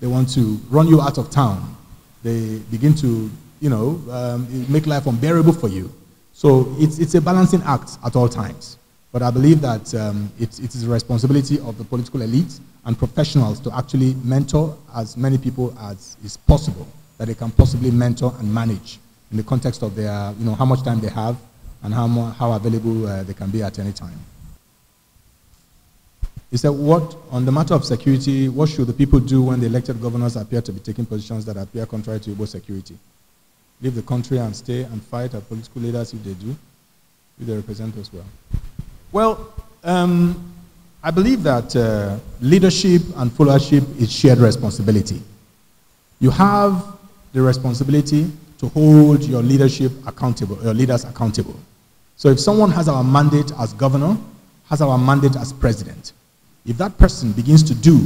They want to run you out of town. They begin to, you know, um, make life unbearable for you. So it's, it's a balancing act at all times. But I believe that um, it, it is the responsibility of the political elite and professionals to actually mentor as many people as is possible, that they can possibly mentor and manage in the context of their, you know, how much time they have and how, more, how available uh, they can be at any time. He said, what, on the matter of security, what should the people do when the elected governors appear to be taking positions that appear contrary to Igbo security? Leave the country and stay and fight our political leaders if they do, if they represent us well. Well, um, I believe that uh, leadership and followership is shared responsibility. You have the responsibility to hold your leadership accountable, your leaders accountable. So if someone has our mandate as governor, has our mandate as president, if that person begins to do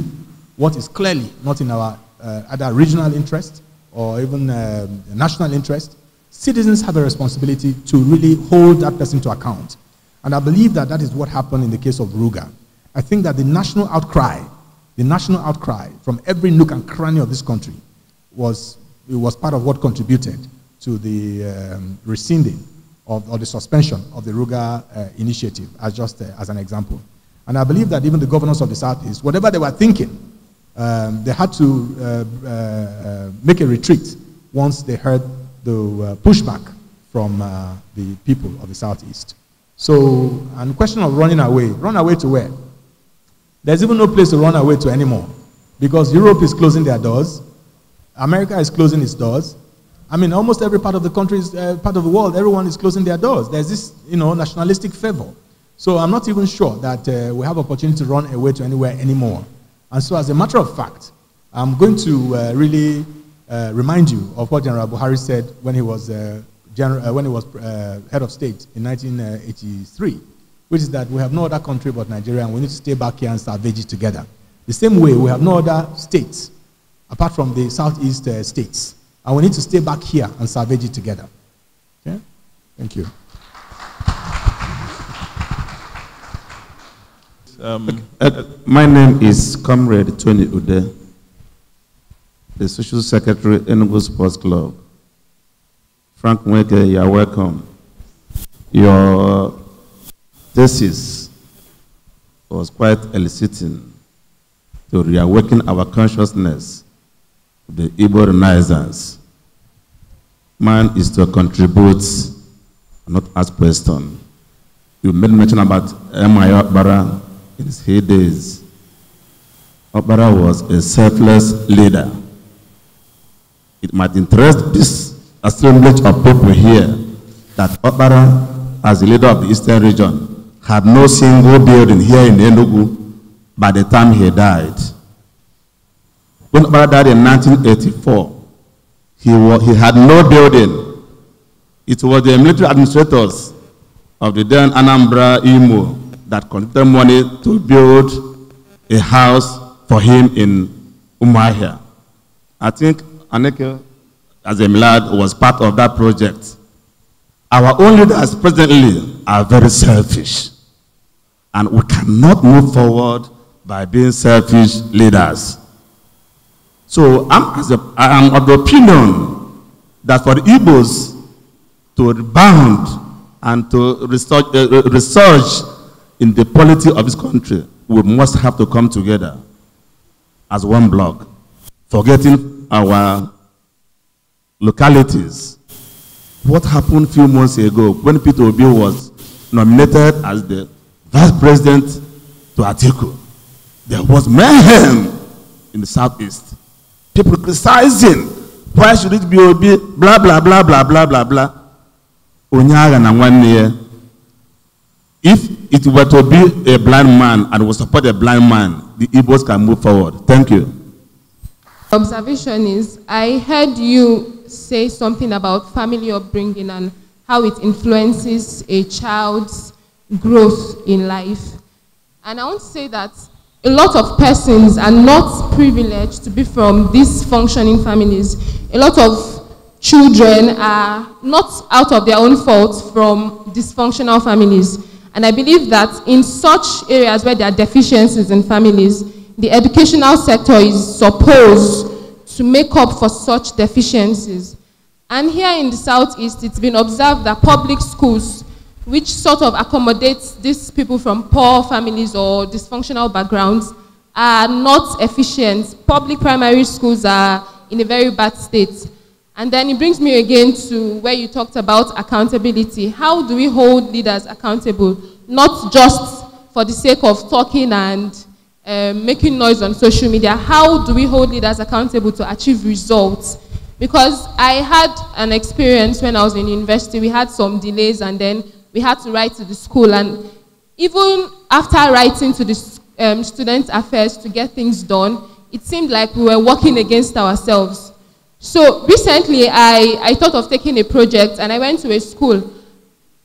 what is clearly not in our uh, either regional interest or even uh, national interest, citizens have a responsibility to really hold that person to account and I believe that that is what happened in the case of Ruga. I think that the national outcry, the national outcry from every nook and cranny of this country was, it was part of what contributed to the um, rescinding of, or the suspension of the Ruga uh, initiative, as just uh, as an example. And I believe that even the governors of the Southeast, whatever they were thinking, um, they had to uh, uh make a retreat once they heard the uh, pushback from uh, the people of the Southeast. So, and question of running away. Run away to where? There's even no place to run away to anymore because Europe is closing their doors. America is closing its doors. I mean, almost every part of the country, is, uh, part of the world, everyone is closing their doors. There's this, you know, nationalistic fervor. So I'm not even sure that uh, we have opportunity to run away to anywhere anymore. And so, as a matter of fact, I'm going to uh, really uh, remind you of what General Buhari said when he was uh, general, uh, when he was uh, head of state in 1983, which is that we have no other country but Nigeria and we need to stay back here and salvage it together. The same way, we have no other states apart from the southeast uh, states. And we need to stay back here and salvage it together. Okay? Thank you. Um, uh, my name is Comrade Tony Ude, the Social Secretary Enugu Sports Club. Frank Mweke, you are welcome. Your thesis was quite eliciting to reawaken our consciousness of the Igbo Renaissance. Man is to contribute, not ask questions. You made mention about M.I. Obara in his heydays. Obara was a selfless leader. It might interest this assemblage of people here that Opara, as the leader of the Eastern region, had no single building here in Enugu by the time he died. When Opara died in 1984, he, was, he had no building. It was the military administrators of the then Anambra Imo that collected money to build a house for him in Umahia. I think Aneke as a Lad was part of that project. Our own leaders presently are very selfish. And we cannot move forward by being selfish leaders. So I'm, as a, I'm of the opinion that for the Igbos to rebound and to research uh, uh in the polity of this country, we must have to come together as one block, forgetting our localities. What happened a few months ago when Peter Obi was nominated as the vice president to Atiku? There was mayhem in the southeast. People criticizing. Why should it be Obi? Blah, blah, blah, blah, blah, blah, blah. Onyaga If it were to be a blind man and was support a blind man, the Igbos can move forward. Thank you. Observation is, I heard you say something about family upbringing and how it influences a child's growth in life. And I want to say that a lot of persons are not privileged to be from these functioning families. A lot of children are not out of their own fault from dysfunctional families. And I believe that in such areas where there are deficiencies in families, the educational sector is supposed to make up for such deficiencies. And here in the Southeast, it's been observed that public schools, which sort of accommodates these people from poor families or dysfunctional backgrounds, are not efficient. Public primary schools are in a very bad state. And then it brings me again to where you talked about accountability. How do we hold leaders accountable? Not just for the sake of talking and um, making noise on social media, how do we hold leaders accountable to achieve results? Because I had an experience when I was in university, we had some delays and then we had to write to the school. And even after writing to the um, student affairs to get things done, it seemed like we were working against ourselves. So recently, I, I thought of taking a project and I went to a school.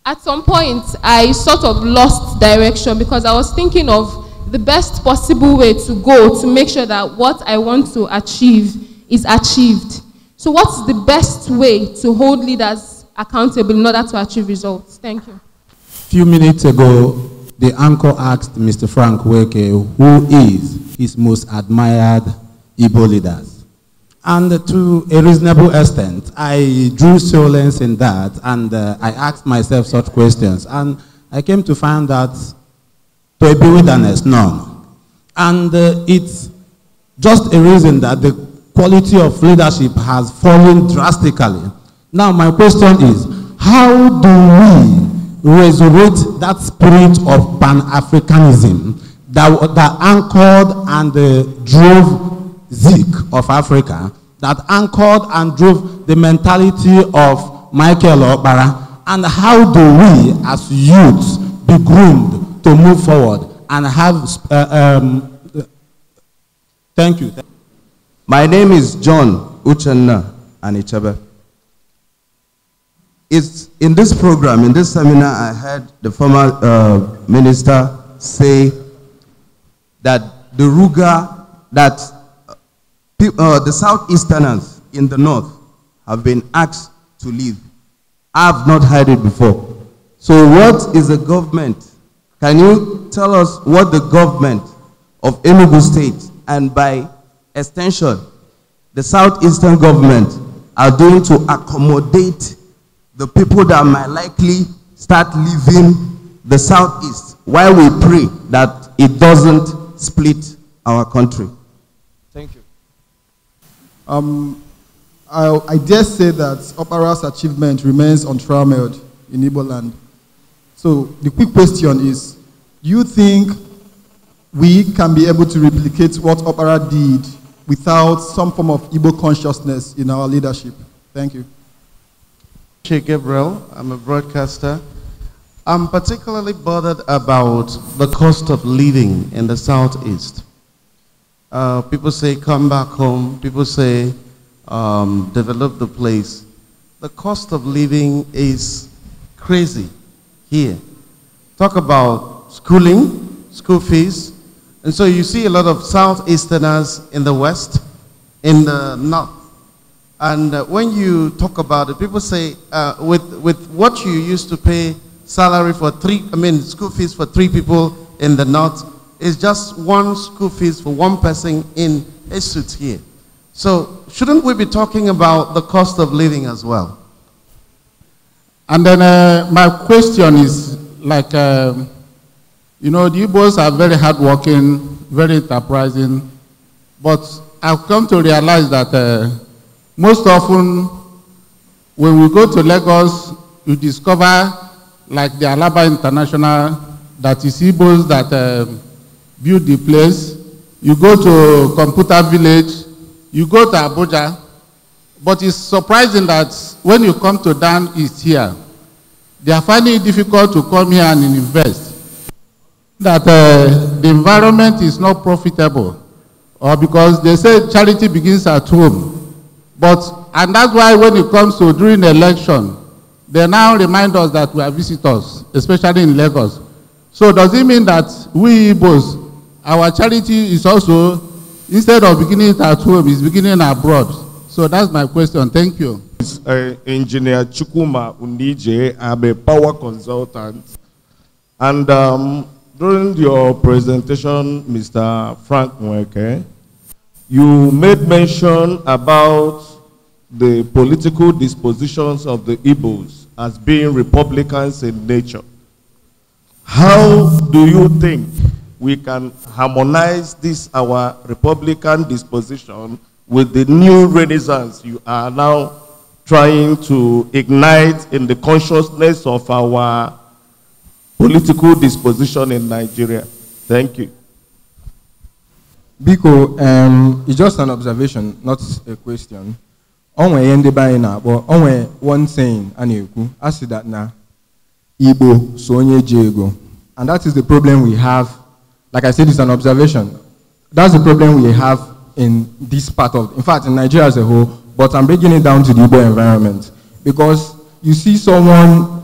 At some point, I sort of lost direction because I was thinking of the best possible way to go to make sure that what I want to achieve is achieved. So what's the best way to hold leaders accountable in order to achieve results? Thank you. A few minutes ago, the anchor asked Mr. Frank Weke who is his most admired Igbo leaders. And to a reasonable extent, I drew solace in that and uh, I asked myself such questions. And I came to find that to a wilderness, none. And uh, it's just a reason that the quality of leadership has fallen drastically. Now, my question is how do we resurrect that spirit of pan Africanism that, that anchored and uh, drove Zeke of Africa, that anchored and drove the mentality of Michael Obara? And how do we, as youths, be groomed to move forward and have. Uh, um, thank you. My name is John Uchenna Anichebe. It's in this program, in this seminar, I heard the former uh, minister say that the Ruga, that uh, uh, the Southeasterners in the north have been asked to leave. I've not heard it before. So what is the government can you tell us what the government of Enugu State and by extension, the southeastern government are doing to accommodate the people that might likely start leaving the southeast while we pray that it doesn't split our country. Thank you. Um, I, I dare say that Opera's achievement remains untrammeled in Ibo land. So the quick question is, do you think we can be able to replicate what opera did without some form of Igbo consciousness in our leadership? Thank you. Che Gabriel, I'm a broadcaster. I'm particularly bothered about the cost of living in the Southeast. Uh, people say, come back home. People say, um, develop the place. The cost of living is crazy here. Talk about schooling, school fees. And so you see a lot of Southeasterners in the West, in the North. And uh, when you talk about it, people say, uh, with, with what you used to pay salary for three, I mean, school fees for three people in the North, is just one school fees for one person in a suit here. So shouldn't we be talking about the cost of living as well? And then uh, my question is like, uh, you know, the Igbos are very hardworking, very enterprising, but I've come to realize that uh, most often when we go to Lagos, you discover, like the Alaba International, that is Igbos that um, build the place. You go to Computer Village, you go to Abuja, but it's surprising that when you come to Dan, it's here. they are finding it difficult to come here and invest. That uh, the environment is not profitable, or because they say charity begins at home. But and that's why when it comes to during election, they now remind us that we are visitors, especially in Lagos. So does it mean that we Igbos, our charity is also instead of beginning at home, is beginning abroad? So that's my question. Thank you. Uh, Engineer Chukuma Unije. I'm a power consultant. And um, during your presentation, Mr. Frank Mweke, you made mention about the political dispositions of the Igbos as being Republicans in nature. How do you think we can harmonize this, our Republican disposition, with the new renaissance you are now trying to ignite in the consciousness of our political disposition in Nigeria. Thank you. Biko, um, it's just an observation, not a question. Onwe yende bayi but onwe one saying, I yuku, asi that na, Ibo so jego. And that is the problem we have. Like I said, it's an observation. That's the problem we have in this part of, in fact, in Nigeria as a whole, but I'm breaking it down to the urban environment. Because you see someone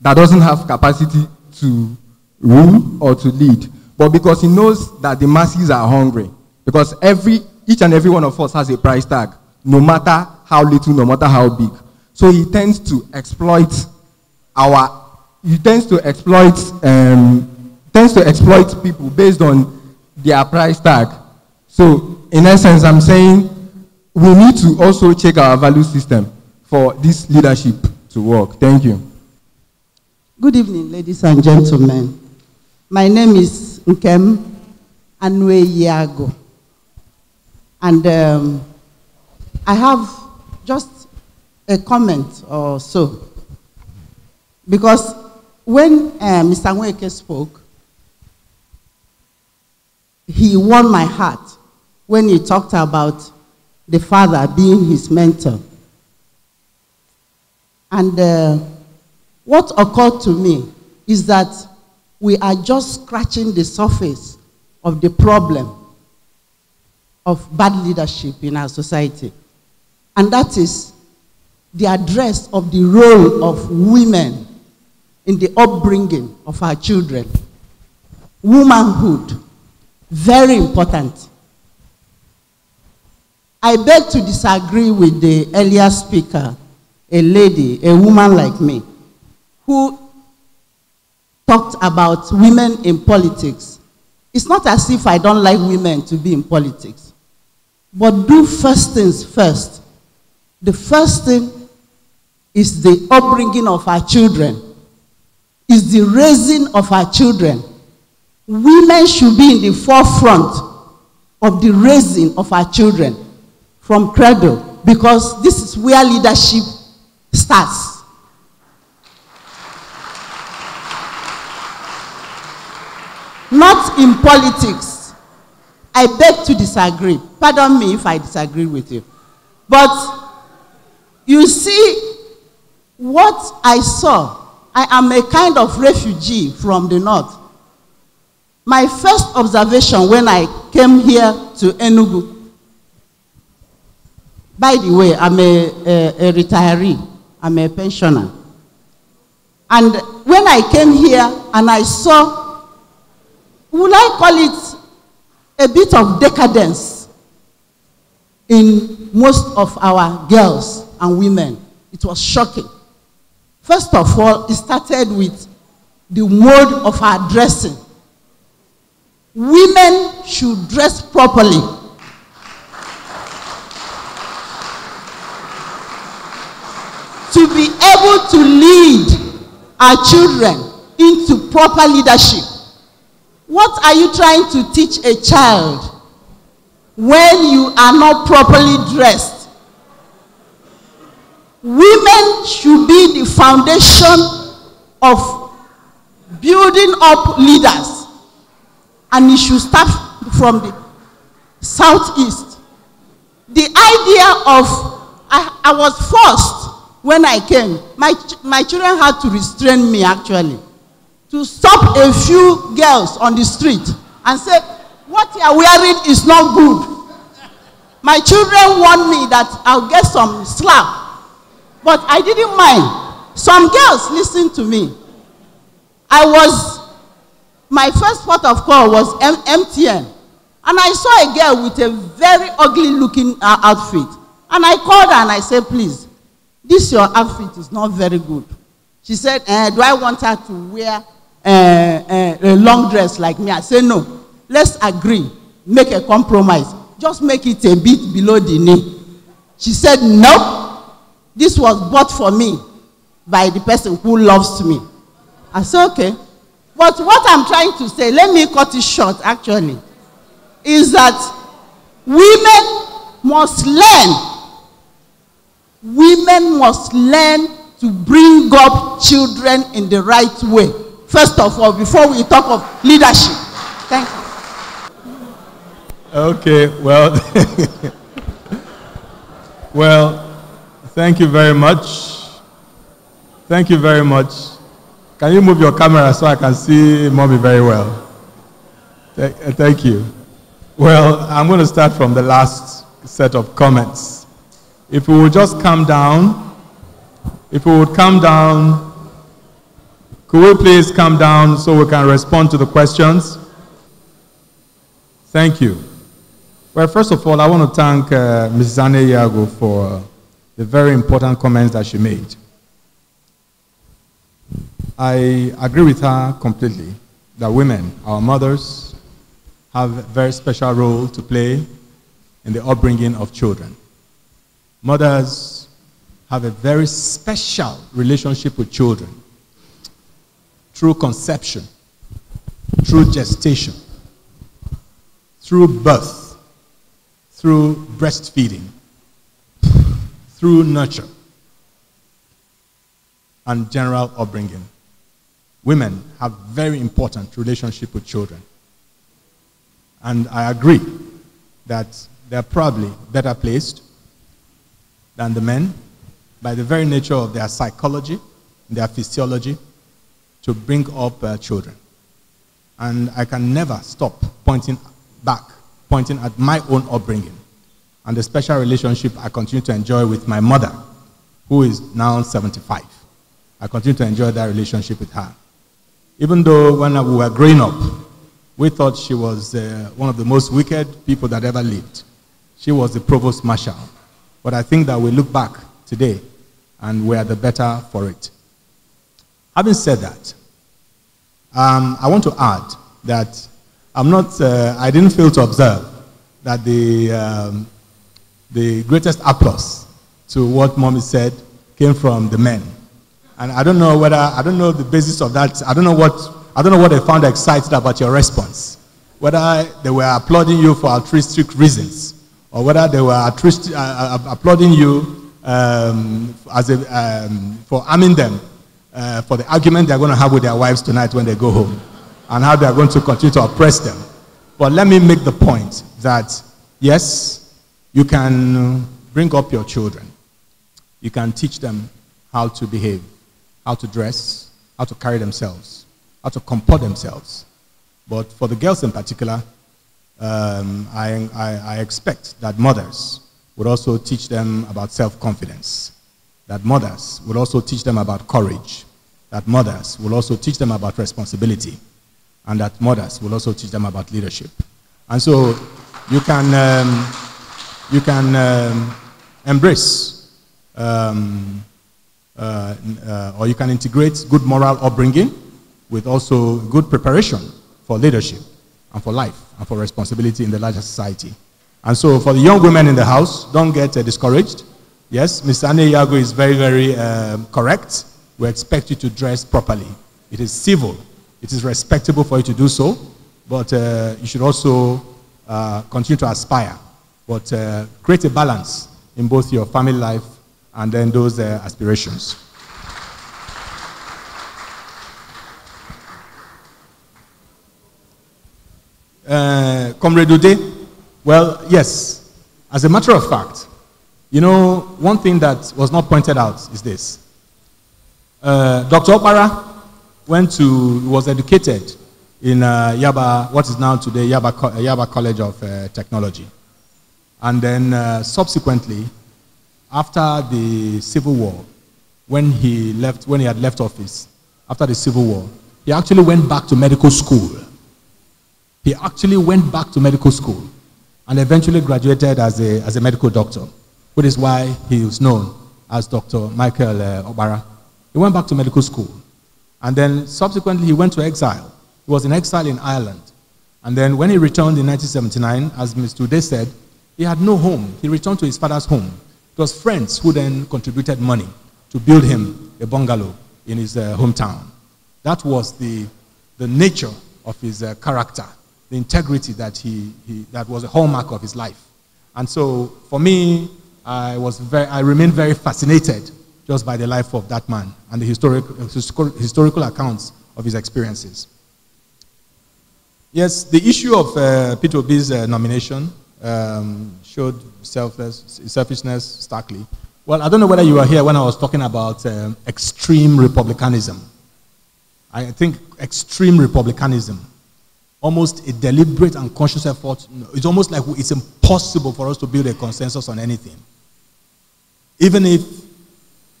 that doesn't have capacity to rule or to lead, but because he knows that the masses are hungry, because every, each and every one of us has a price tag, no matter how little, no matter how big. So he tends to exploit our, he tends to exploit, um, tends to exploit people based on their price tag so, in essence, I'm saying we need to also check our value system for this leadership to work. Thank you. Good evening, ladies and gentlemen. My name is Nkem Anwe Yago. And um, I have just a comment or so. Because when uh, Mr. Nweke spoke, he won my heart when he talked about the father being his mentor. And uh, what occurred to me is that we are just scratching the surface of the problem of bad leadership in our society. And that is the address of the role of women in the upbringing of our children. Womanhood, very important. I beg to disagree with the earlier speaker, a lady, a woman like me, who talked about women in politics. It's not as if I don't like women to be in politics. But do first things first. The first thing is the upbringing of our children, is the raising of our children. Women should be in the forefront of the raising of our children. from cradle because this is where leadership starts. Not in politics. I beg to disagree. Pardon me if I disagree with you. But you see, what I saw, I am a kind of refugee from the north. My first observation when I came here to Enugu By the way, I'm a, a, a retiree, I'm a pensioner. And when I came here and I saw, would I call it a bit of decadence in most of our girls and women? It was shocking. First of all, it started with the mode of our dressing. Women should dress properly to be able to lead our children into proper leadership. What are you trying to teach a child when you are not properly dressed? Women should be the foundation of building up leaders, and it should start from the southeast. The idea of I, I was forced when I came, my, my children had to restrain me actually to stop a few girls on the street and say, What you are wearing is not good. My children warned me that I'll get some slap, but I didn't mind. Some girls listened to me. I was, my first port of call was M- MTN. And I saw a girl with a very ugly looking uh, outfit. And I called her and I said, Please, this your outfit is not very good. She said, uh, do I want her to wear uh, uh, a long dress like me? I said, no. Let's agree. Make a compromise. Just make it a bit below the knee. She said, no. This was bought for me by the person who loves me. I said, okay. But what I'm trying to say, let me cut it short actually, is that women must learn Women must learn to bring up children in the right way. First of all, before we talk of leadership. Thank you. Okay, well, well, thank you very much. Thank you very much. Can you move your camera so I can see mommy very well? Thank you. Well, I'm going to start from the last set of comments. If we would just come down, if we would come down, could we please come down so we can respond to the questions? Thank you. Well, first of all, I want to thank uh, Ms. Zane Yago for uh, the very important comments that she made. I agree with her completely that women, our mothers, have a very special role to play in the upbringing of children. Mothers have a very special relationship with children through conception, through gestation, through birth, through breastfeeding, through nurture, and general upbringing. Women have very important relationship with children. And I agree that they're probably better placed than the men by the very nature of their psychology, their physiology, to bring up uh, children. And I can never stop pointing back, pointing at my own upbringing and the special relationship I continue to enjoy with my mother, who is now 75. I continue to enjoy that relationship with her. Even though when we were growing up, we thought she was uh, one of the most wicked people that ever lived. She was the provost marshal but I think that we look back today and we are the better for it. Having said that, um, I want to add that I'm not, uh, I didn't fail to observe that the, um, the greatest applause to what mommy said came from the men. And I don't know whether, I don't know the basis of that. I don't know what, I don't know what they found excited about your response. Whether they were applauding you for altruistic reasons or whether they were uh, uh, uh, applauding you um, as a, um, for arming them uh, for the argument they're going to have with their wives tonight when they go home and how they're going to continue to oppress them. But let me make the point that yes, you can bring up your children, you can teach them how to behave, how to dress, how to carry themselves, how to comport themselves. But for the girls in particular, um, I, I, I expect that mothers would also teach them about self-confidence, that mothers would also teach them about courage, that mothers will also teach them about responsibility, and that mothers will also teach them about leadership. And so you can, um, you can um, embrace um, uh, uh, or you can integrate good moral upbringing with also good preparation for leadership and for life and uh, for responsibility in the larger society. And so for the young women in the house, don't get uh, discouraged. Yes, Mr. Anne Yago is very, very uh, correct. We expect you to dress properly. It is civil. It is respectable for you to do so, but uh, you should also uh, continue to aspire. But uh, create a balance in both your family life and then those aspirations. Uh, Comrade Ude? Well, yes. As a matter of fact, you know, one thing that was not pointed out is this. Uh, Dr. Opara went to, was educated in uh, Yaba, what is now today Yaba, uh, Yaba College of uh, Technology. And then uh, subsequently, after the Civil War, when he left, when he had left office, after the Civil War, he actually went back to medical school he actually went back to medical school and eventually graduated as a, as a medical doctor, which is why he was known as Dr. Michael uh, Obara. He went back to medical school. And then subsequently, he went to exile. He was in exile in Ireland. And then when he returned in 1979, as Mr. Uday said, he had no home. He returned to his father's home. It was friends who then contributed money to build him a bungalow in his uh, hometown. That was the, the nature of his uh, character the integrity that, he, he, that was a hallmark of his life. And so for me, I, was very, I remain very fascinated just by the life of that man and the historic, historical accounts of his experiences. Yes, the issue of uh, Peter Obi's uh, nomination um, showed selfishness starkly. Well, I don't know whether you were here when I was talking about um, extreme republicanism. I think extreme republicanism almost a deliberate and conscious effort. It's almost like it's impossible for us to build a consensus on anything. Even if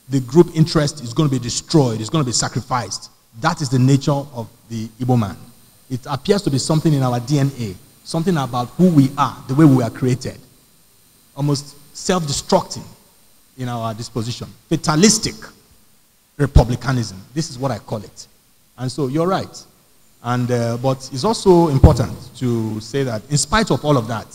the group interest is going to be destroyed, it's going to be sacrificed. That is the nature of the Igbo man. It appears to be something in our DNA, something about who we are, the way we are created. Almost self destructing in our disposition. Fatalistic republicanism. This is what I call it. And so you're right. And, uh, but it's also important to say that in spite of all of that,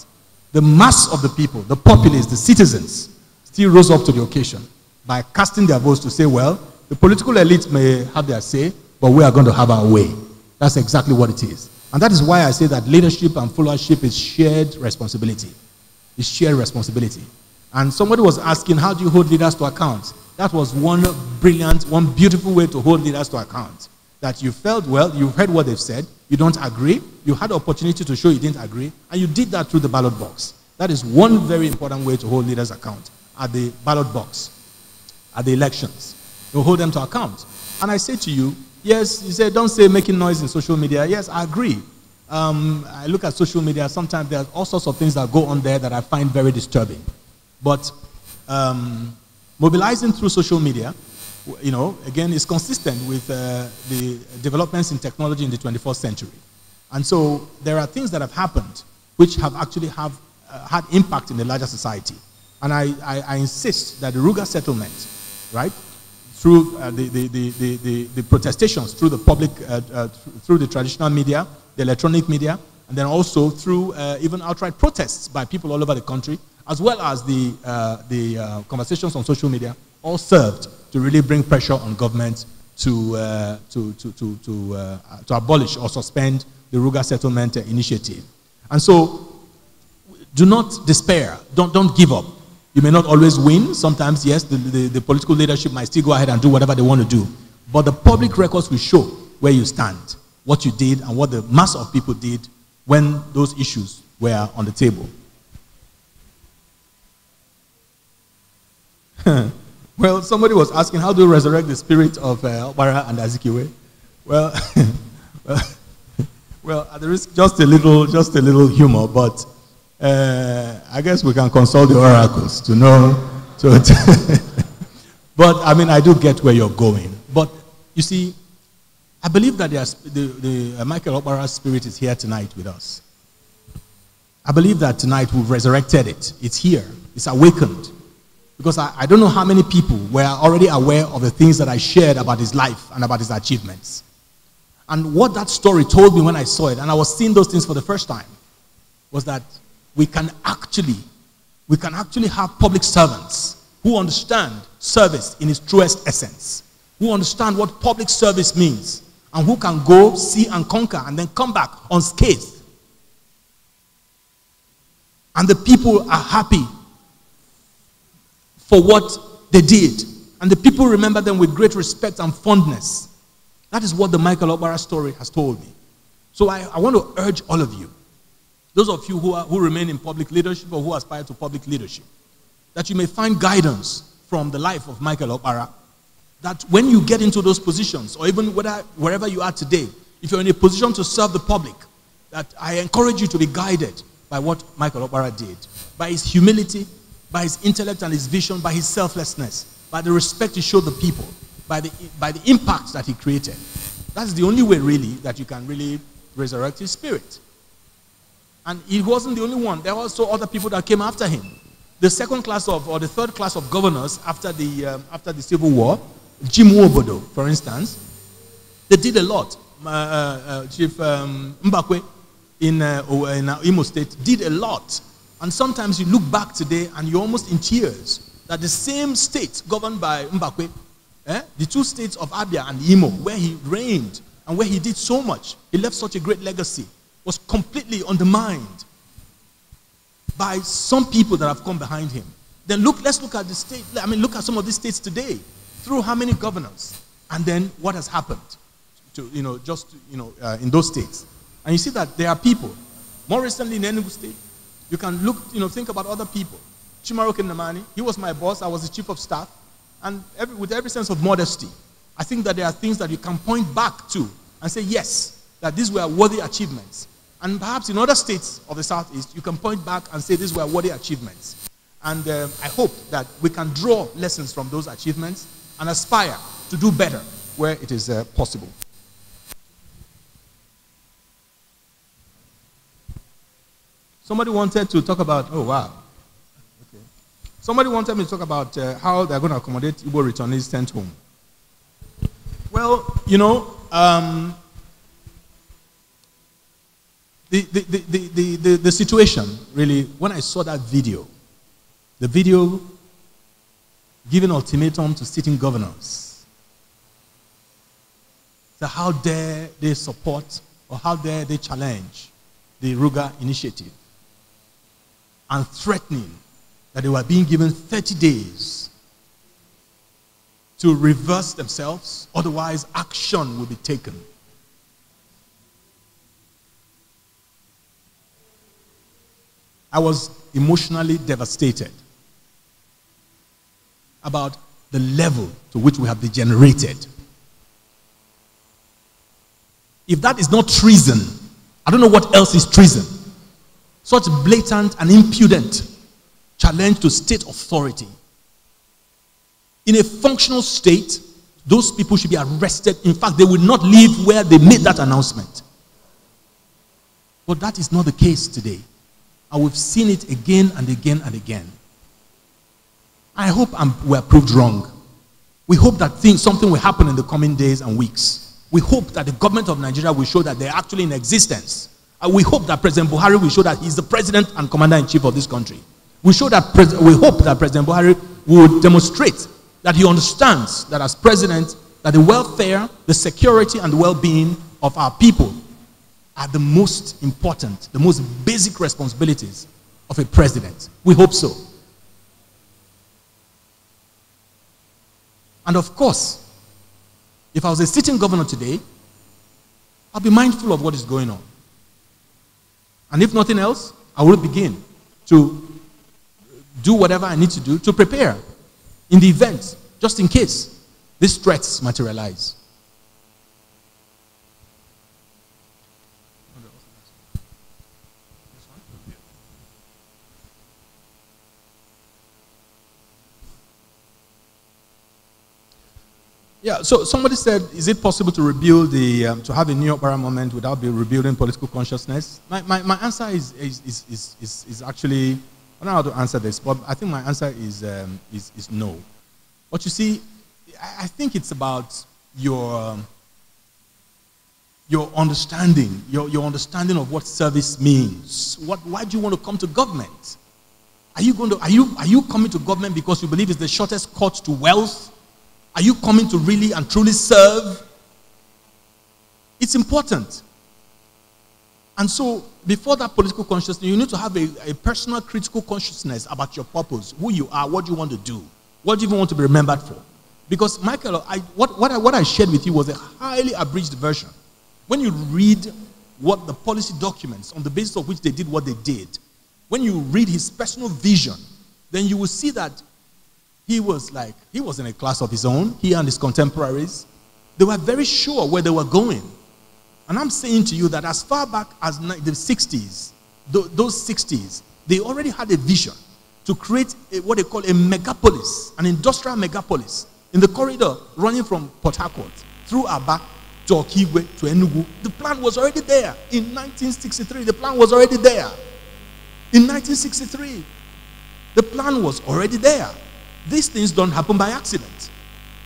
the mass of the people, the populace, the citizens, still rose up to the occasion by casting their votes to say, well, the political elite may have their say, but we are going to have our way. That's exactly what it is. And that is why I say that leadership and followership is shared responsibility. It's shared responsibility. And somebody was asking, how do you hold leaders to account? That was one brilliant, one beautiful way to hold leaders to account that you felt well, you heard what they've said, you don't agree, you had opportunity to show you didn't agree, and you did that through the ballot box. That is one very important way to hold leaders account at the ballot box, at the elections. You hold them to account. And I say to you, yes, you say, don't say making noise in social media. Yes, I agree. Um, I look at social media, sometimes there are all sorts of things that go on there that I find very disturbing. But um, mobilizing through social media you know, again, is consistent with uh, the developments in technology in the 21st century. And so there are things that have happened which have actually have, uh, had impact in the larger society. And I, I, I insist that the Ruga settlement, right, through uh, the, the, the, the, the, protestations, through the public, uh, uh, through the traditional media, the electronic media, and then also through uh, even outright protests by people all over the country, as well as the, the conversations on social media, all served to really bring pressure on government to, uh, to, to, to, to, uh, to, abolish or suspend the Ruga Settlement Initiative. And so, do not despair. Don't, don't give up. You may not always win. Sometimes, yes, the, the, the political leadership might still go ahead and do whatever they want to do. But the public records will show where you stand, what you did, and what the mass of people did when those issues were on the table. Well, somebody was asking, how do you resurrect the spirit of uh, and Azikiwe? Well, well, at the risk, just a little, just a little humor, but uh, I guess we can consult the oracles to know. To, to but I mean, I do get where you're going. But you see, I believe that the, the uh, Michael Obara's spirit is here tonight with us. I believe that tonight we've resurrected it. It's here. It's awakened. Because I, I don't know how many people were already aware of the things that I shared about his life and about his achievements. And what that story told me when I saw it, and I was seeing those things for the first time, was that we can actually, we can actually have public servants who understand service in its truest essence, who understand what public service means, and who can go, see, and conquer, and then come back unscathed. And the people are happy for what they did. And the people remember them with great respect and fondness. That is what the Michael Obara story has told me. So I, I want to urge all of you, those of you who, are, who remain in public leadership or who aspire to public leadership, that you may find guidance from the life of Michael Obara. That when you get into those positions, or even whether, wherever you are today, if you're in a position to serve the public, that I encourage you to be guided by what Michael Obara did, by his humility, by his intellect and his vision, by his selflessness, by the respect he showed the people, by the, by the impact that he created. That's the only way, really, that you can really resurrect his spirit. And he wasn't the only one. There were also other people that came after him. The second class of, or the third class of governors after the, um, after the Civil War, Jim Wobodo, for instance, they did a lot. Uh, uh, Chief um, Mbakwe in, uh, in uh, Imo State did a lot and sometimes you look back today and you're almost in tears that the same state governed by Mbakwe, eh, the two states of Abia and Imo, where he reigned and where he did so much, he left such a great legacy, was completely undermined by some people that have come behind him. Then look, let's look at the state, I mean, look at some of these states today through how many governors and then what has happened to, you know, just, you know, uh, in those states. And you see that there are people, more recently in Enugu state, you can look, you know, think about other people. Chimaro Namani, he was my boss, I was the chief of staff. And every, with every sense of modesty, I think that there are things that you can point back to and say, yes, that these were worthy achievements. And perhaps in other states of the Southeast, you can point back and say these were worthy achievements. And uh, I hope that we can draw lessons from those achievements and aspire to do better where it is uh, possible. Somebody wanted to talk about, oh, wow. Okay. Somebody wanted me to talk about uh, how they're going to accommodate Igbo returnees sent home. Well, you know, um, the, the, the, the, the, the situation, really, when I saw that video, the video giving ultimatum to sitting governors. So how dare they support or how dare they challenge the Ruga initiative? and threatening that they were being given 30 days to reverse themselves, otherwise, action will be taken. I was emotionally devastated about the level to which we have degenerated. If that is not treason, I don't know what else is treason such blatant and impudent challenge to state authority. In a functional state, those people should be arrested. In fact, they will not leave where they made that announcement. But that is not the case today. And we've seen it again and again and again. I hope I'm, we're proved wrong. We hope that things, something will happen in the coming days and weeks. We hope that the government of Nigeria will show that they're actually in existence uh, we hope that President Buhari will show that he's the president and commander in chief of this country. We, show that pres- we hope that President Buhari will demonstrate that he understands that as president, that the welfare, the security, and the well-being of our people are the most important, the most basic responsibilities of a president. We hope so. And of course, if I was a sitting governor today, i would be mindful of what is going on. And if nothing else, I will begin to do whatever I need to do to prepare in the event, just in case these threats materialize. Yeah, so somebody said, is it possible to rebuild the, um, to have a new opera moment without be rebuilding political consciousness? My, my, my answer is, is, is, is, is actually, I don't know how to answer this, but I think my answer is, um, is, is no. But you see, I think it's about your, um, your understanding, your, your understanding of what service means. What, why do you want to come to government? Are you, going to, are, you, are you coming to government because you believe it's the shortest cut to wealth? Are you coming to really and truly serve? It's important. And so, before that political consciousness, you need to have a, a, personal critical consciousness about your purpose, who you are, what you want to do, what you even want to be remembered for. Because, Michael, I, what, what, I, what I shared with you was a highly abridged version. When you read what the policy documents on the basis of which they did what they did, when you read his personal vision, then you will see that he was like, he was in a class of his own, he and his contemporaries. They were very sure where they were going. And I'm saying to you that as far back as the 60s, those 60s, they already had a vision to create a, what they call a megapolis, an industrial megapolis, in the corridor running from Port Harcourt through Aba to Okigwe to Enugu. The plan was already there in 1963. The plan was already there in 1963. The plan was already there. These things don't happen by accident.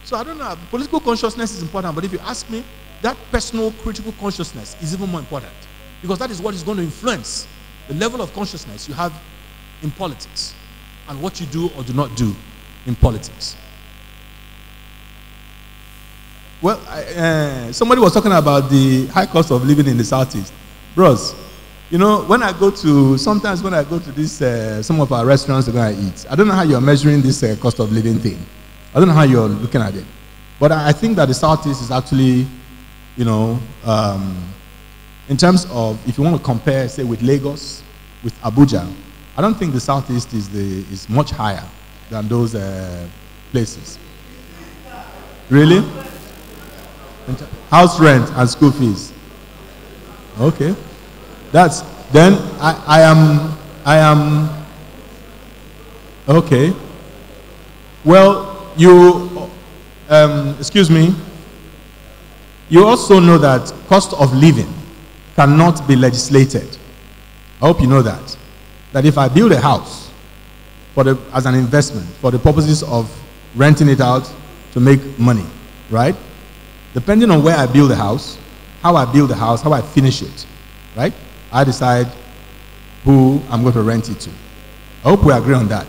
So I don't know. Political consciousness is important, but if you ask me, that personal critical consciousness is even more important because that is what is going to influence the level of consciousness you have in politics and what you do or do not do in politics. Well, I, uh, somebody was talking about the high cost of living in the Southeast. Bros, you know, when I go to, sometimes when I go to this, uh, some of our restaurants where I eat, I don't know how you're measuring this uh, cost of living thing. I don't know how you're looking at it. But I, I think that the Southeast is actually, you know, um, in terms of, if you want to compare, say, with Lagos, with Abuja, I don't think the Southeast is, the, is much higher than those uh, places. Really? House rent and school fees. Okay. That's then I, I am I am okay. Well, you um, excuse me. You also know that cost of living cannot be legislated. I hope you know that. That if I build a house for the, as an investment for the purposes of renting it out to make money, right? Depending on where I build the house, how I build the house, how I finish it, right? I decide who I'm going to rent it to. I hope we agree on that.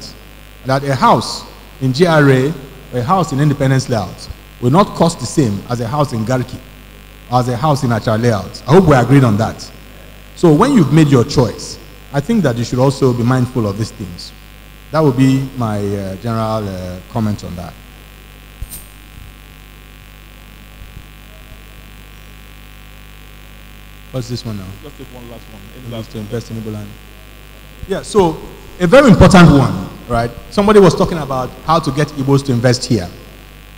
That a house in GRA, a house in Independence Layout, will not cost the same as a house in Garki, as a house in Achar Layout. I hope we agreed on that. So when you've made your choice, I think that you should also be mindful of these things. That would be my uh, general uh, comment on that. What's this one now? Just take one last one. Any last to invest in land. Yeah, so a very important one, right? Somebody was talking about how to get Igbos to invest here.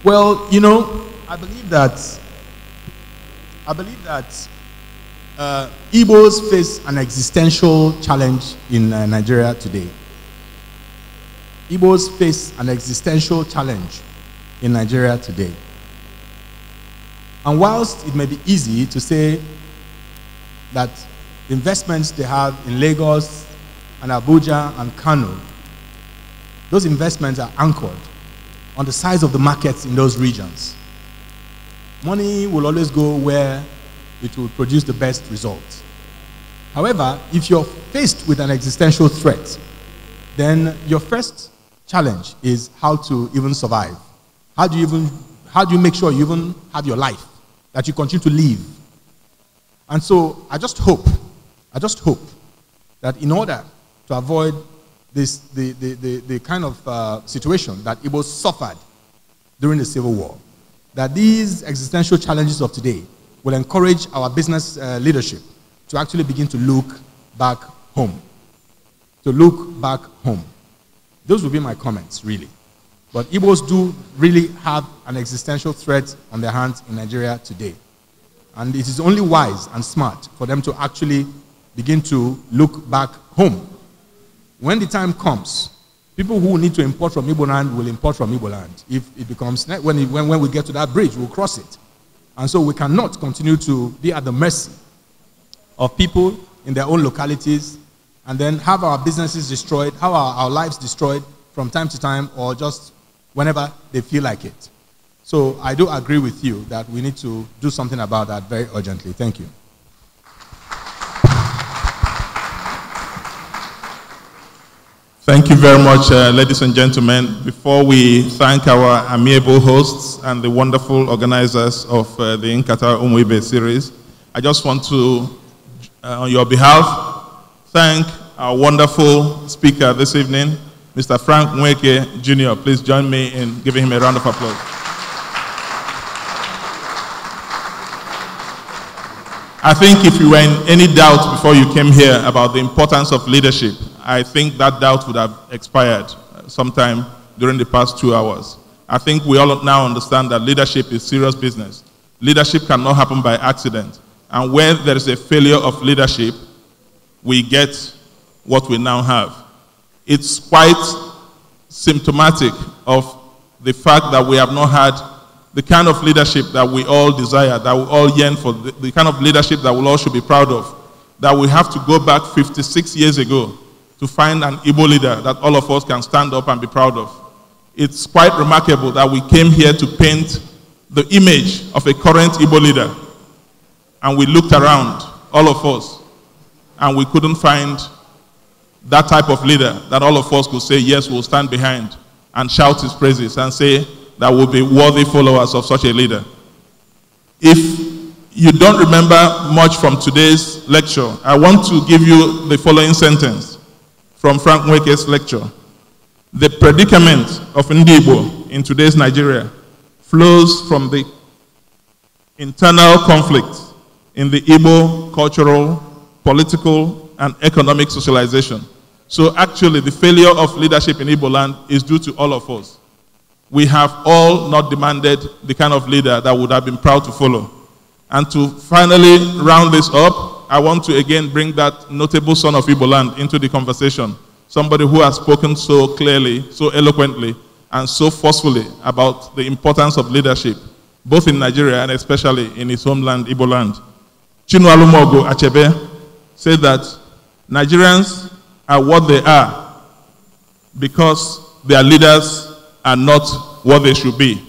Well, you know, I believe that I believe that uh, Igbos face an existential challenge in uh, Nigeria today. Igbos face an existential challenge in Nigeria today. And whilst it may be easy to say that investments they have in Lagos and Abuja and Kano, those investments are anchored on the size of the markets in those regions. Money will always go where it will produce the best results. However, if you're faced with an existential threat, then your first challenge is how to even survive. How do you even how do you make sure you even have your life that you continue to live and so I just hope, I just hope that in order to avoid this, the, the, the, the kind of uh, situation that Igbos suffered during the Civil War, that these existential challenges of today will encourage our business uh, leadership to actually begin to look back home. To look back home. Those will be my comments, really. But Igbos do really have an existential threat on their hands in Nigeria today. And it is only wise and smart for them to actually begin to look back home. When the time comes, people who need to import from Igboland will import from Igboland. If it becomes, when, it, when, when we get to that bridge, we'll cross it. And so we cannot continue to be at the mercy of people in their own localities and then have our businesses destroyed, have our, our lives destroyed from time to time or just whenever they feel like it. So I do agree with you that we need to do something about that very urgently. Thank you. Thank you very much, uh, ladies and gentlemen. Before we thank our amiable hosts and the wonderful organizers of uh, the In Qatar Umwebe series, I just want to, uh, on your behalf, thank our wonderful speaker this evening, Mr. Frank Mweke Jr. Please join me in giving him a round of applause. I think if you were in any doubt before you came here about the importance of leadership, I think that doubt would have expired sometime during the past two hours. I think we all now understand that leadership is serious business. Leadership cannot happen by accident. And where there is a failure of leadership, we get what we now have. It's quite symptomatic of the fact that we have not had the kind of leadership that we all desire, that we all yearn for, the, the kind of leadership that we all should be proud of, that we have to go back 56 years ago to find an Igbo leader that all of us can stand up and be proud of. It's quite remarkable that we came here to paint the image of a current Igbo leader. And we looked around, all of us, and we couldn't find that type of leader that all of us could say, yes, we'll stand behind and shout his praises and say, that would be worthy followers of such a leader. If you don't remember much from today's lecture, I want to give you the following sentence from Frank Wake's lecture. The predicament of Ndibo in today's Nigeria flows from the internal conflict in the Igbo cultural, political, and economic socialization. So actually, the failure of leadership in Igbo land is due to all of us we have all not demanded the kind of leader that would have been proud to follow. And to finally round this up, I want to again bring that notable son of Igbo land into the conversation. Somebody who has spoken so clearly, so eloquently, and so forcefully about the importance of leadership, both in Nigeria and especially in his homeland, Igbo land. Chinualumogo Achebe said that Nigerians are what they are because their leaders are not what they should be.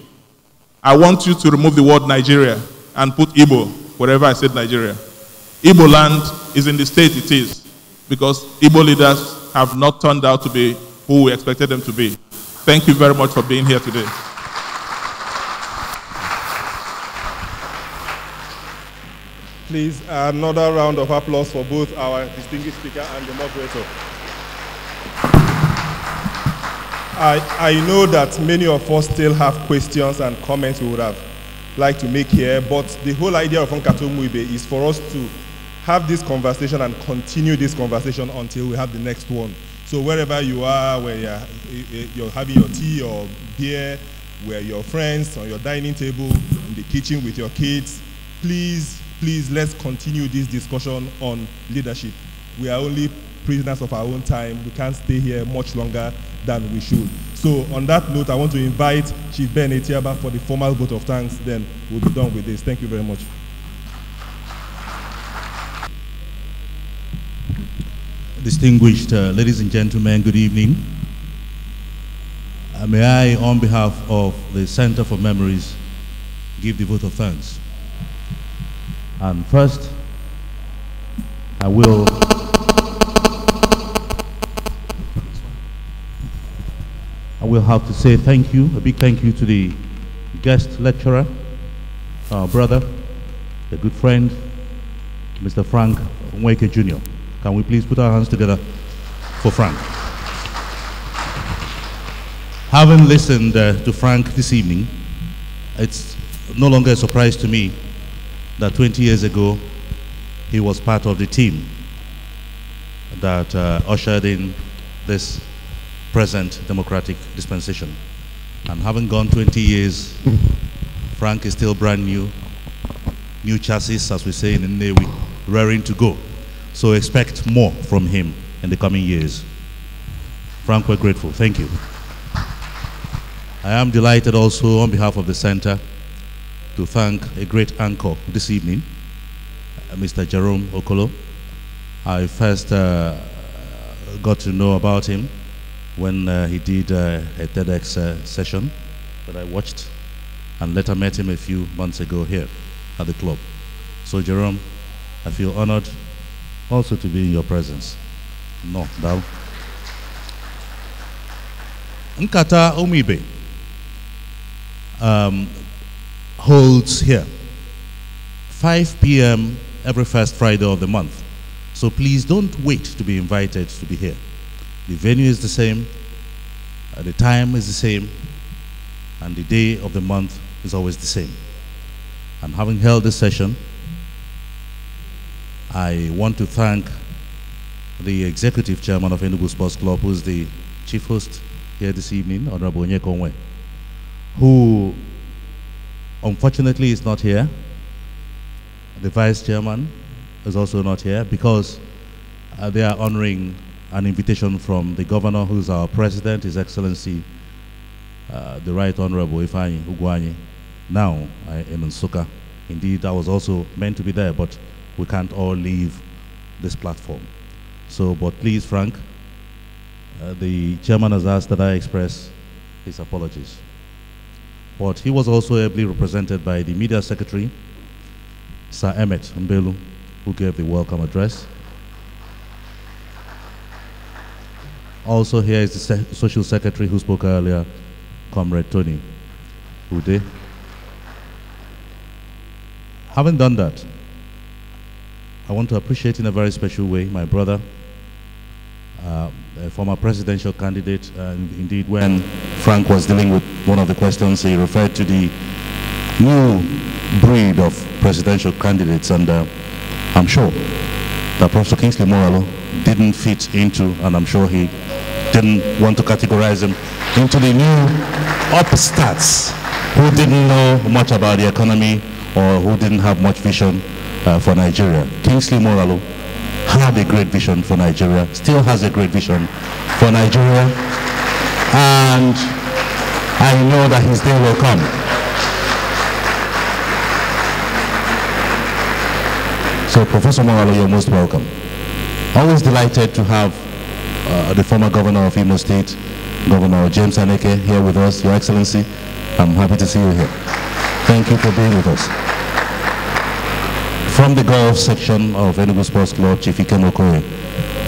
I want you to remove the word Nigeria and put Ibo wherever I said Nigeria. Ibo land is in the state it is because Ibo leaders have not turned out to be who we expected them to be. Thank you very much for being here today. Please, another round of applause for both our distinguished speaker and the moderator. I, I know that many of us still have questions and comments we would have liked to make here, but the whole idea of Onkato Muibe is for us to have this conversation and continue this conversation until we have the next one. So wherever you are, where you're, eh, eh, you're having your tea or beer, where your friends, on your dining table, in the kitchen with your kids, please, please let's continue this discussion on leadership. We are only prisoners of our own time. We can't stay here much longer than we should. So on that note, I want to invite Chief Ben Etiaba for the formal vote of thanks. Then we'll be done with this. Thank you very much. Distinguished uh, ladies and gentlemen, good evening. Uh, may I, on behalf of the Center for Memories, give the vote of thanks. And first, I will... we'll have to say thank you, a big thank you to the guest lecturer, our brother, the good friend, Mr. Frank Nweke Jr. Can we please put our hands together for Frank? Having listened uh, to Frank this evening, it's no longer a surprise to me that 20 years ago he was part of the team that uh, ushered in this present democratic dispensation. And having gone 20 years, Frank is still brand new, new chassis, as we say in the Navy, raring to go. So expect more from him in the coming years. Frank, we're grateful. Thank you. I am delighted also on behalf of the center to thank a great anchor this evening, uh, Mr. Jerome Okolo. I first uh, got to know about him when uh, he did uh, a TEDx uh, session that I watched and later met him a few months ago here at the club. So Jerome, I feel honored also to be in your presence. No, now. Nkata Omibe um, holds here, 5 p.m. every first Friday of the month. So please don't wait to be invited to be here. The venue is the same, uh, the time is the same, and the day of the month is always the same. And having held this session, I want to thank the executive chairman of Enugu Sports Club, who is the chief host here this evening, Honorable Onye Kongwe, who unfortunately is not here. The vice chairman is also not here because uh, they are honoring an invitation from the governor, who's our president, His Excellency, uh, the Right Honorable Ifani Uguanyi. Now I am in Suka. Indeed, I was also meant to be there, but we can't all leave this platform. So, but please, Frank, uh, the chairman has asked that I express his apologies. But he was also ably represented by the media secretary, Sir Emmet Mbelu, who gave the welcome address. Also here is the se social secretary who spoke earlier, Comrade Tony Ude. Having done that, I want to appreciate in a very special way my brother, uh, a former presidential candidate. And indeed, when Frank was dealing with one of the questions, he referred to the new breed of presidential candidates, and uh, I'm sure that Professor Kingsley Moralo didn't fit into, and I'm sure he didn't want to categorize him, into the new upstarts who didn't know much about the economy or who didn't have much vision uh, for Nigeria. Kingsley Moralo had a great vision for Nigeria, still has a great vision for Nigeria, and I know that his day will come. So Professor Moralo, you're most welcome. Always delighted to have uh, the former governor of Imo State, Governor James Aneke, here with us. Your Excellency, I'm happy to see you here. Thank you for being with us. From the golf section of Enugu Sports Club, Chief Ikem Okoye.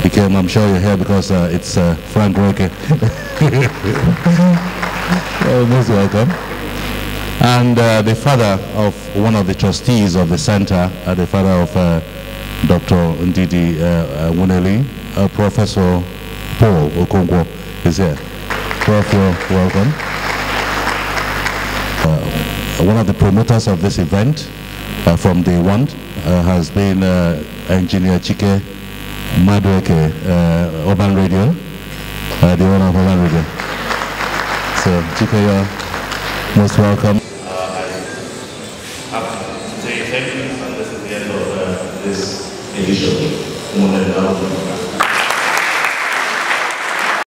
Ikem, I'm sure you're here because uh, it's uh, Frank Roike. well, most welcome and uh, the father of one of the trustees of the center, uh, the father of uh, Dr. Ndidi uh, uh, Wuneli, uh, Professor Paul Okongwo is here. Prof, welcome. one of the promoters of this event from day one has been Engineer Chike Madweke, Urban Radio, the owner of Urban Radio. So, Chike, you're most welcome. individually, one another.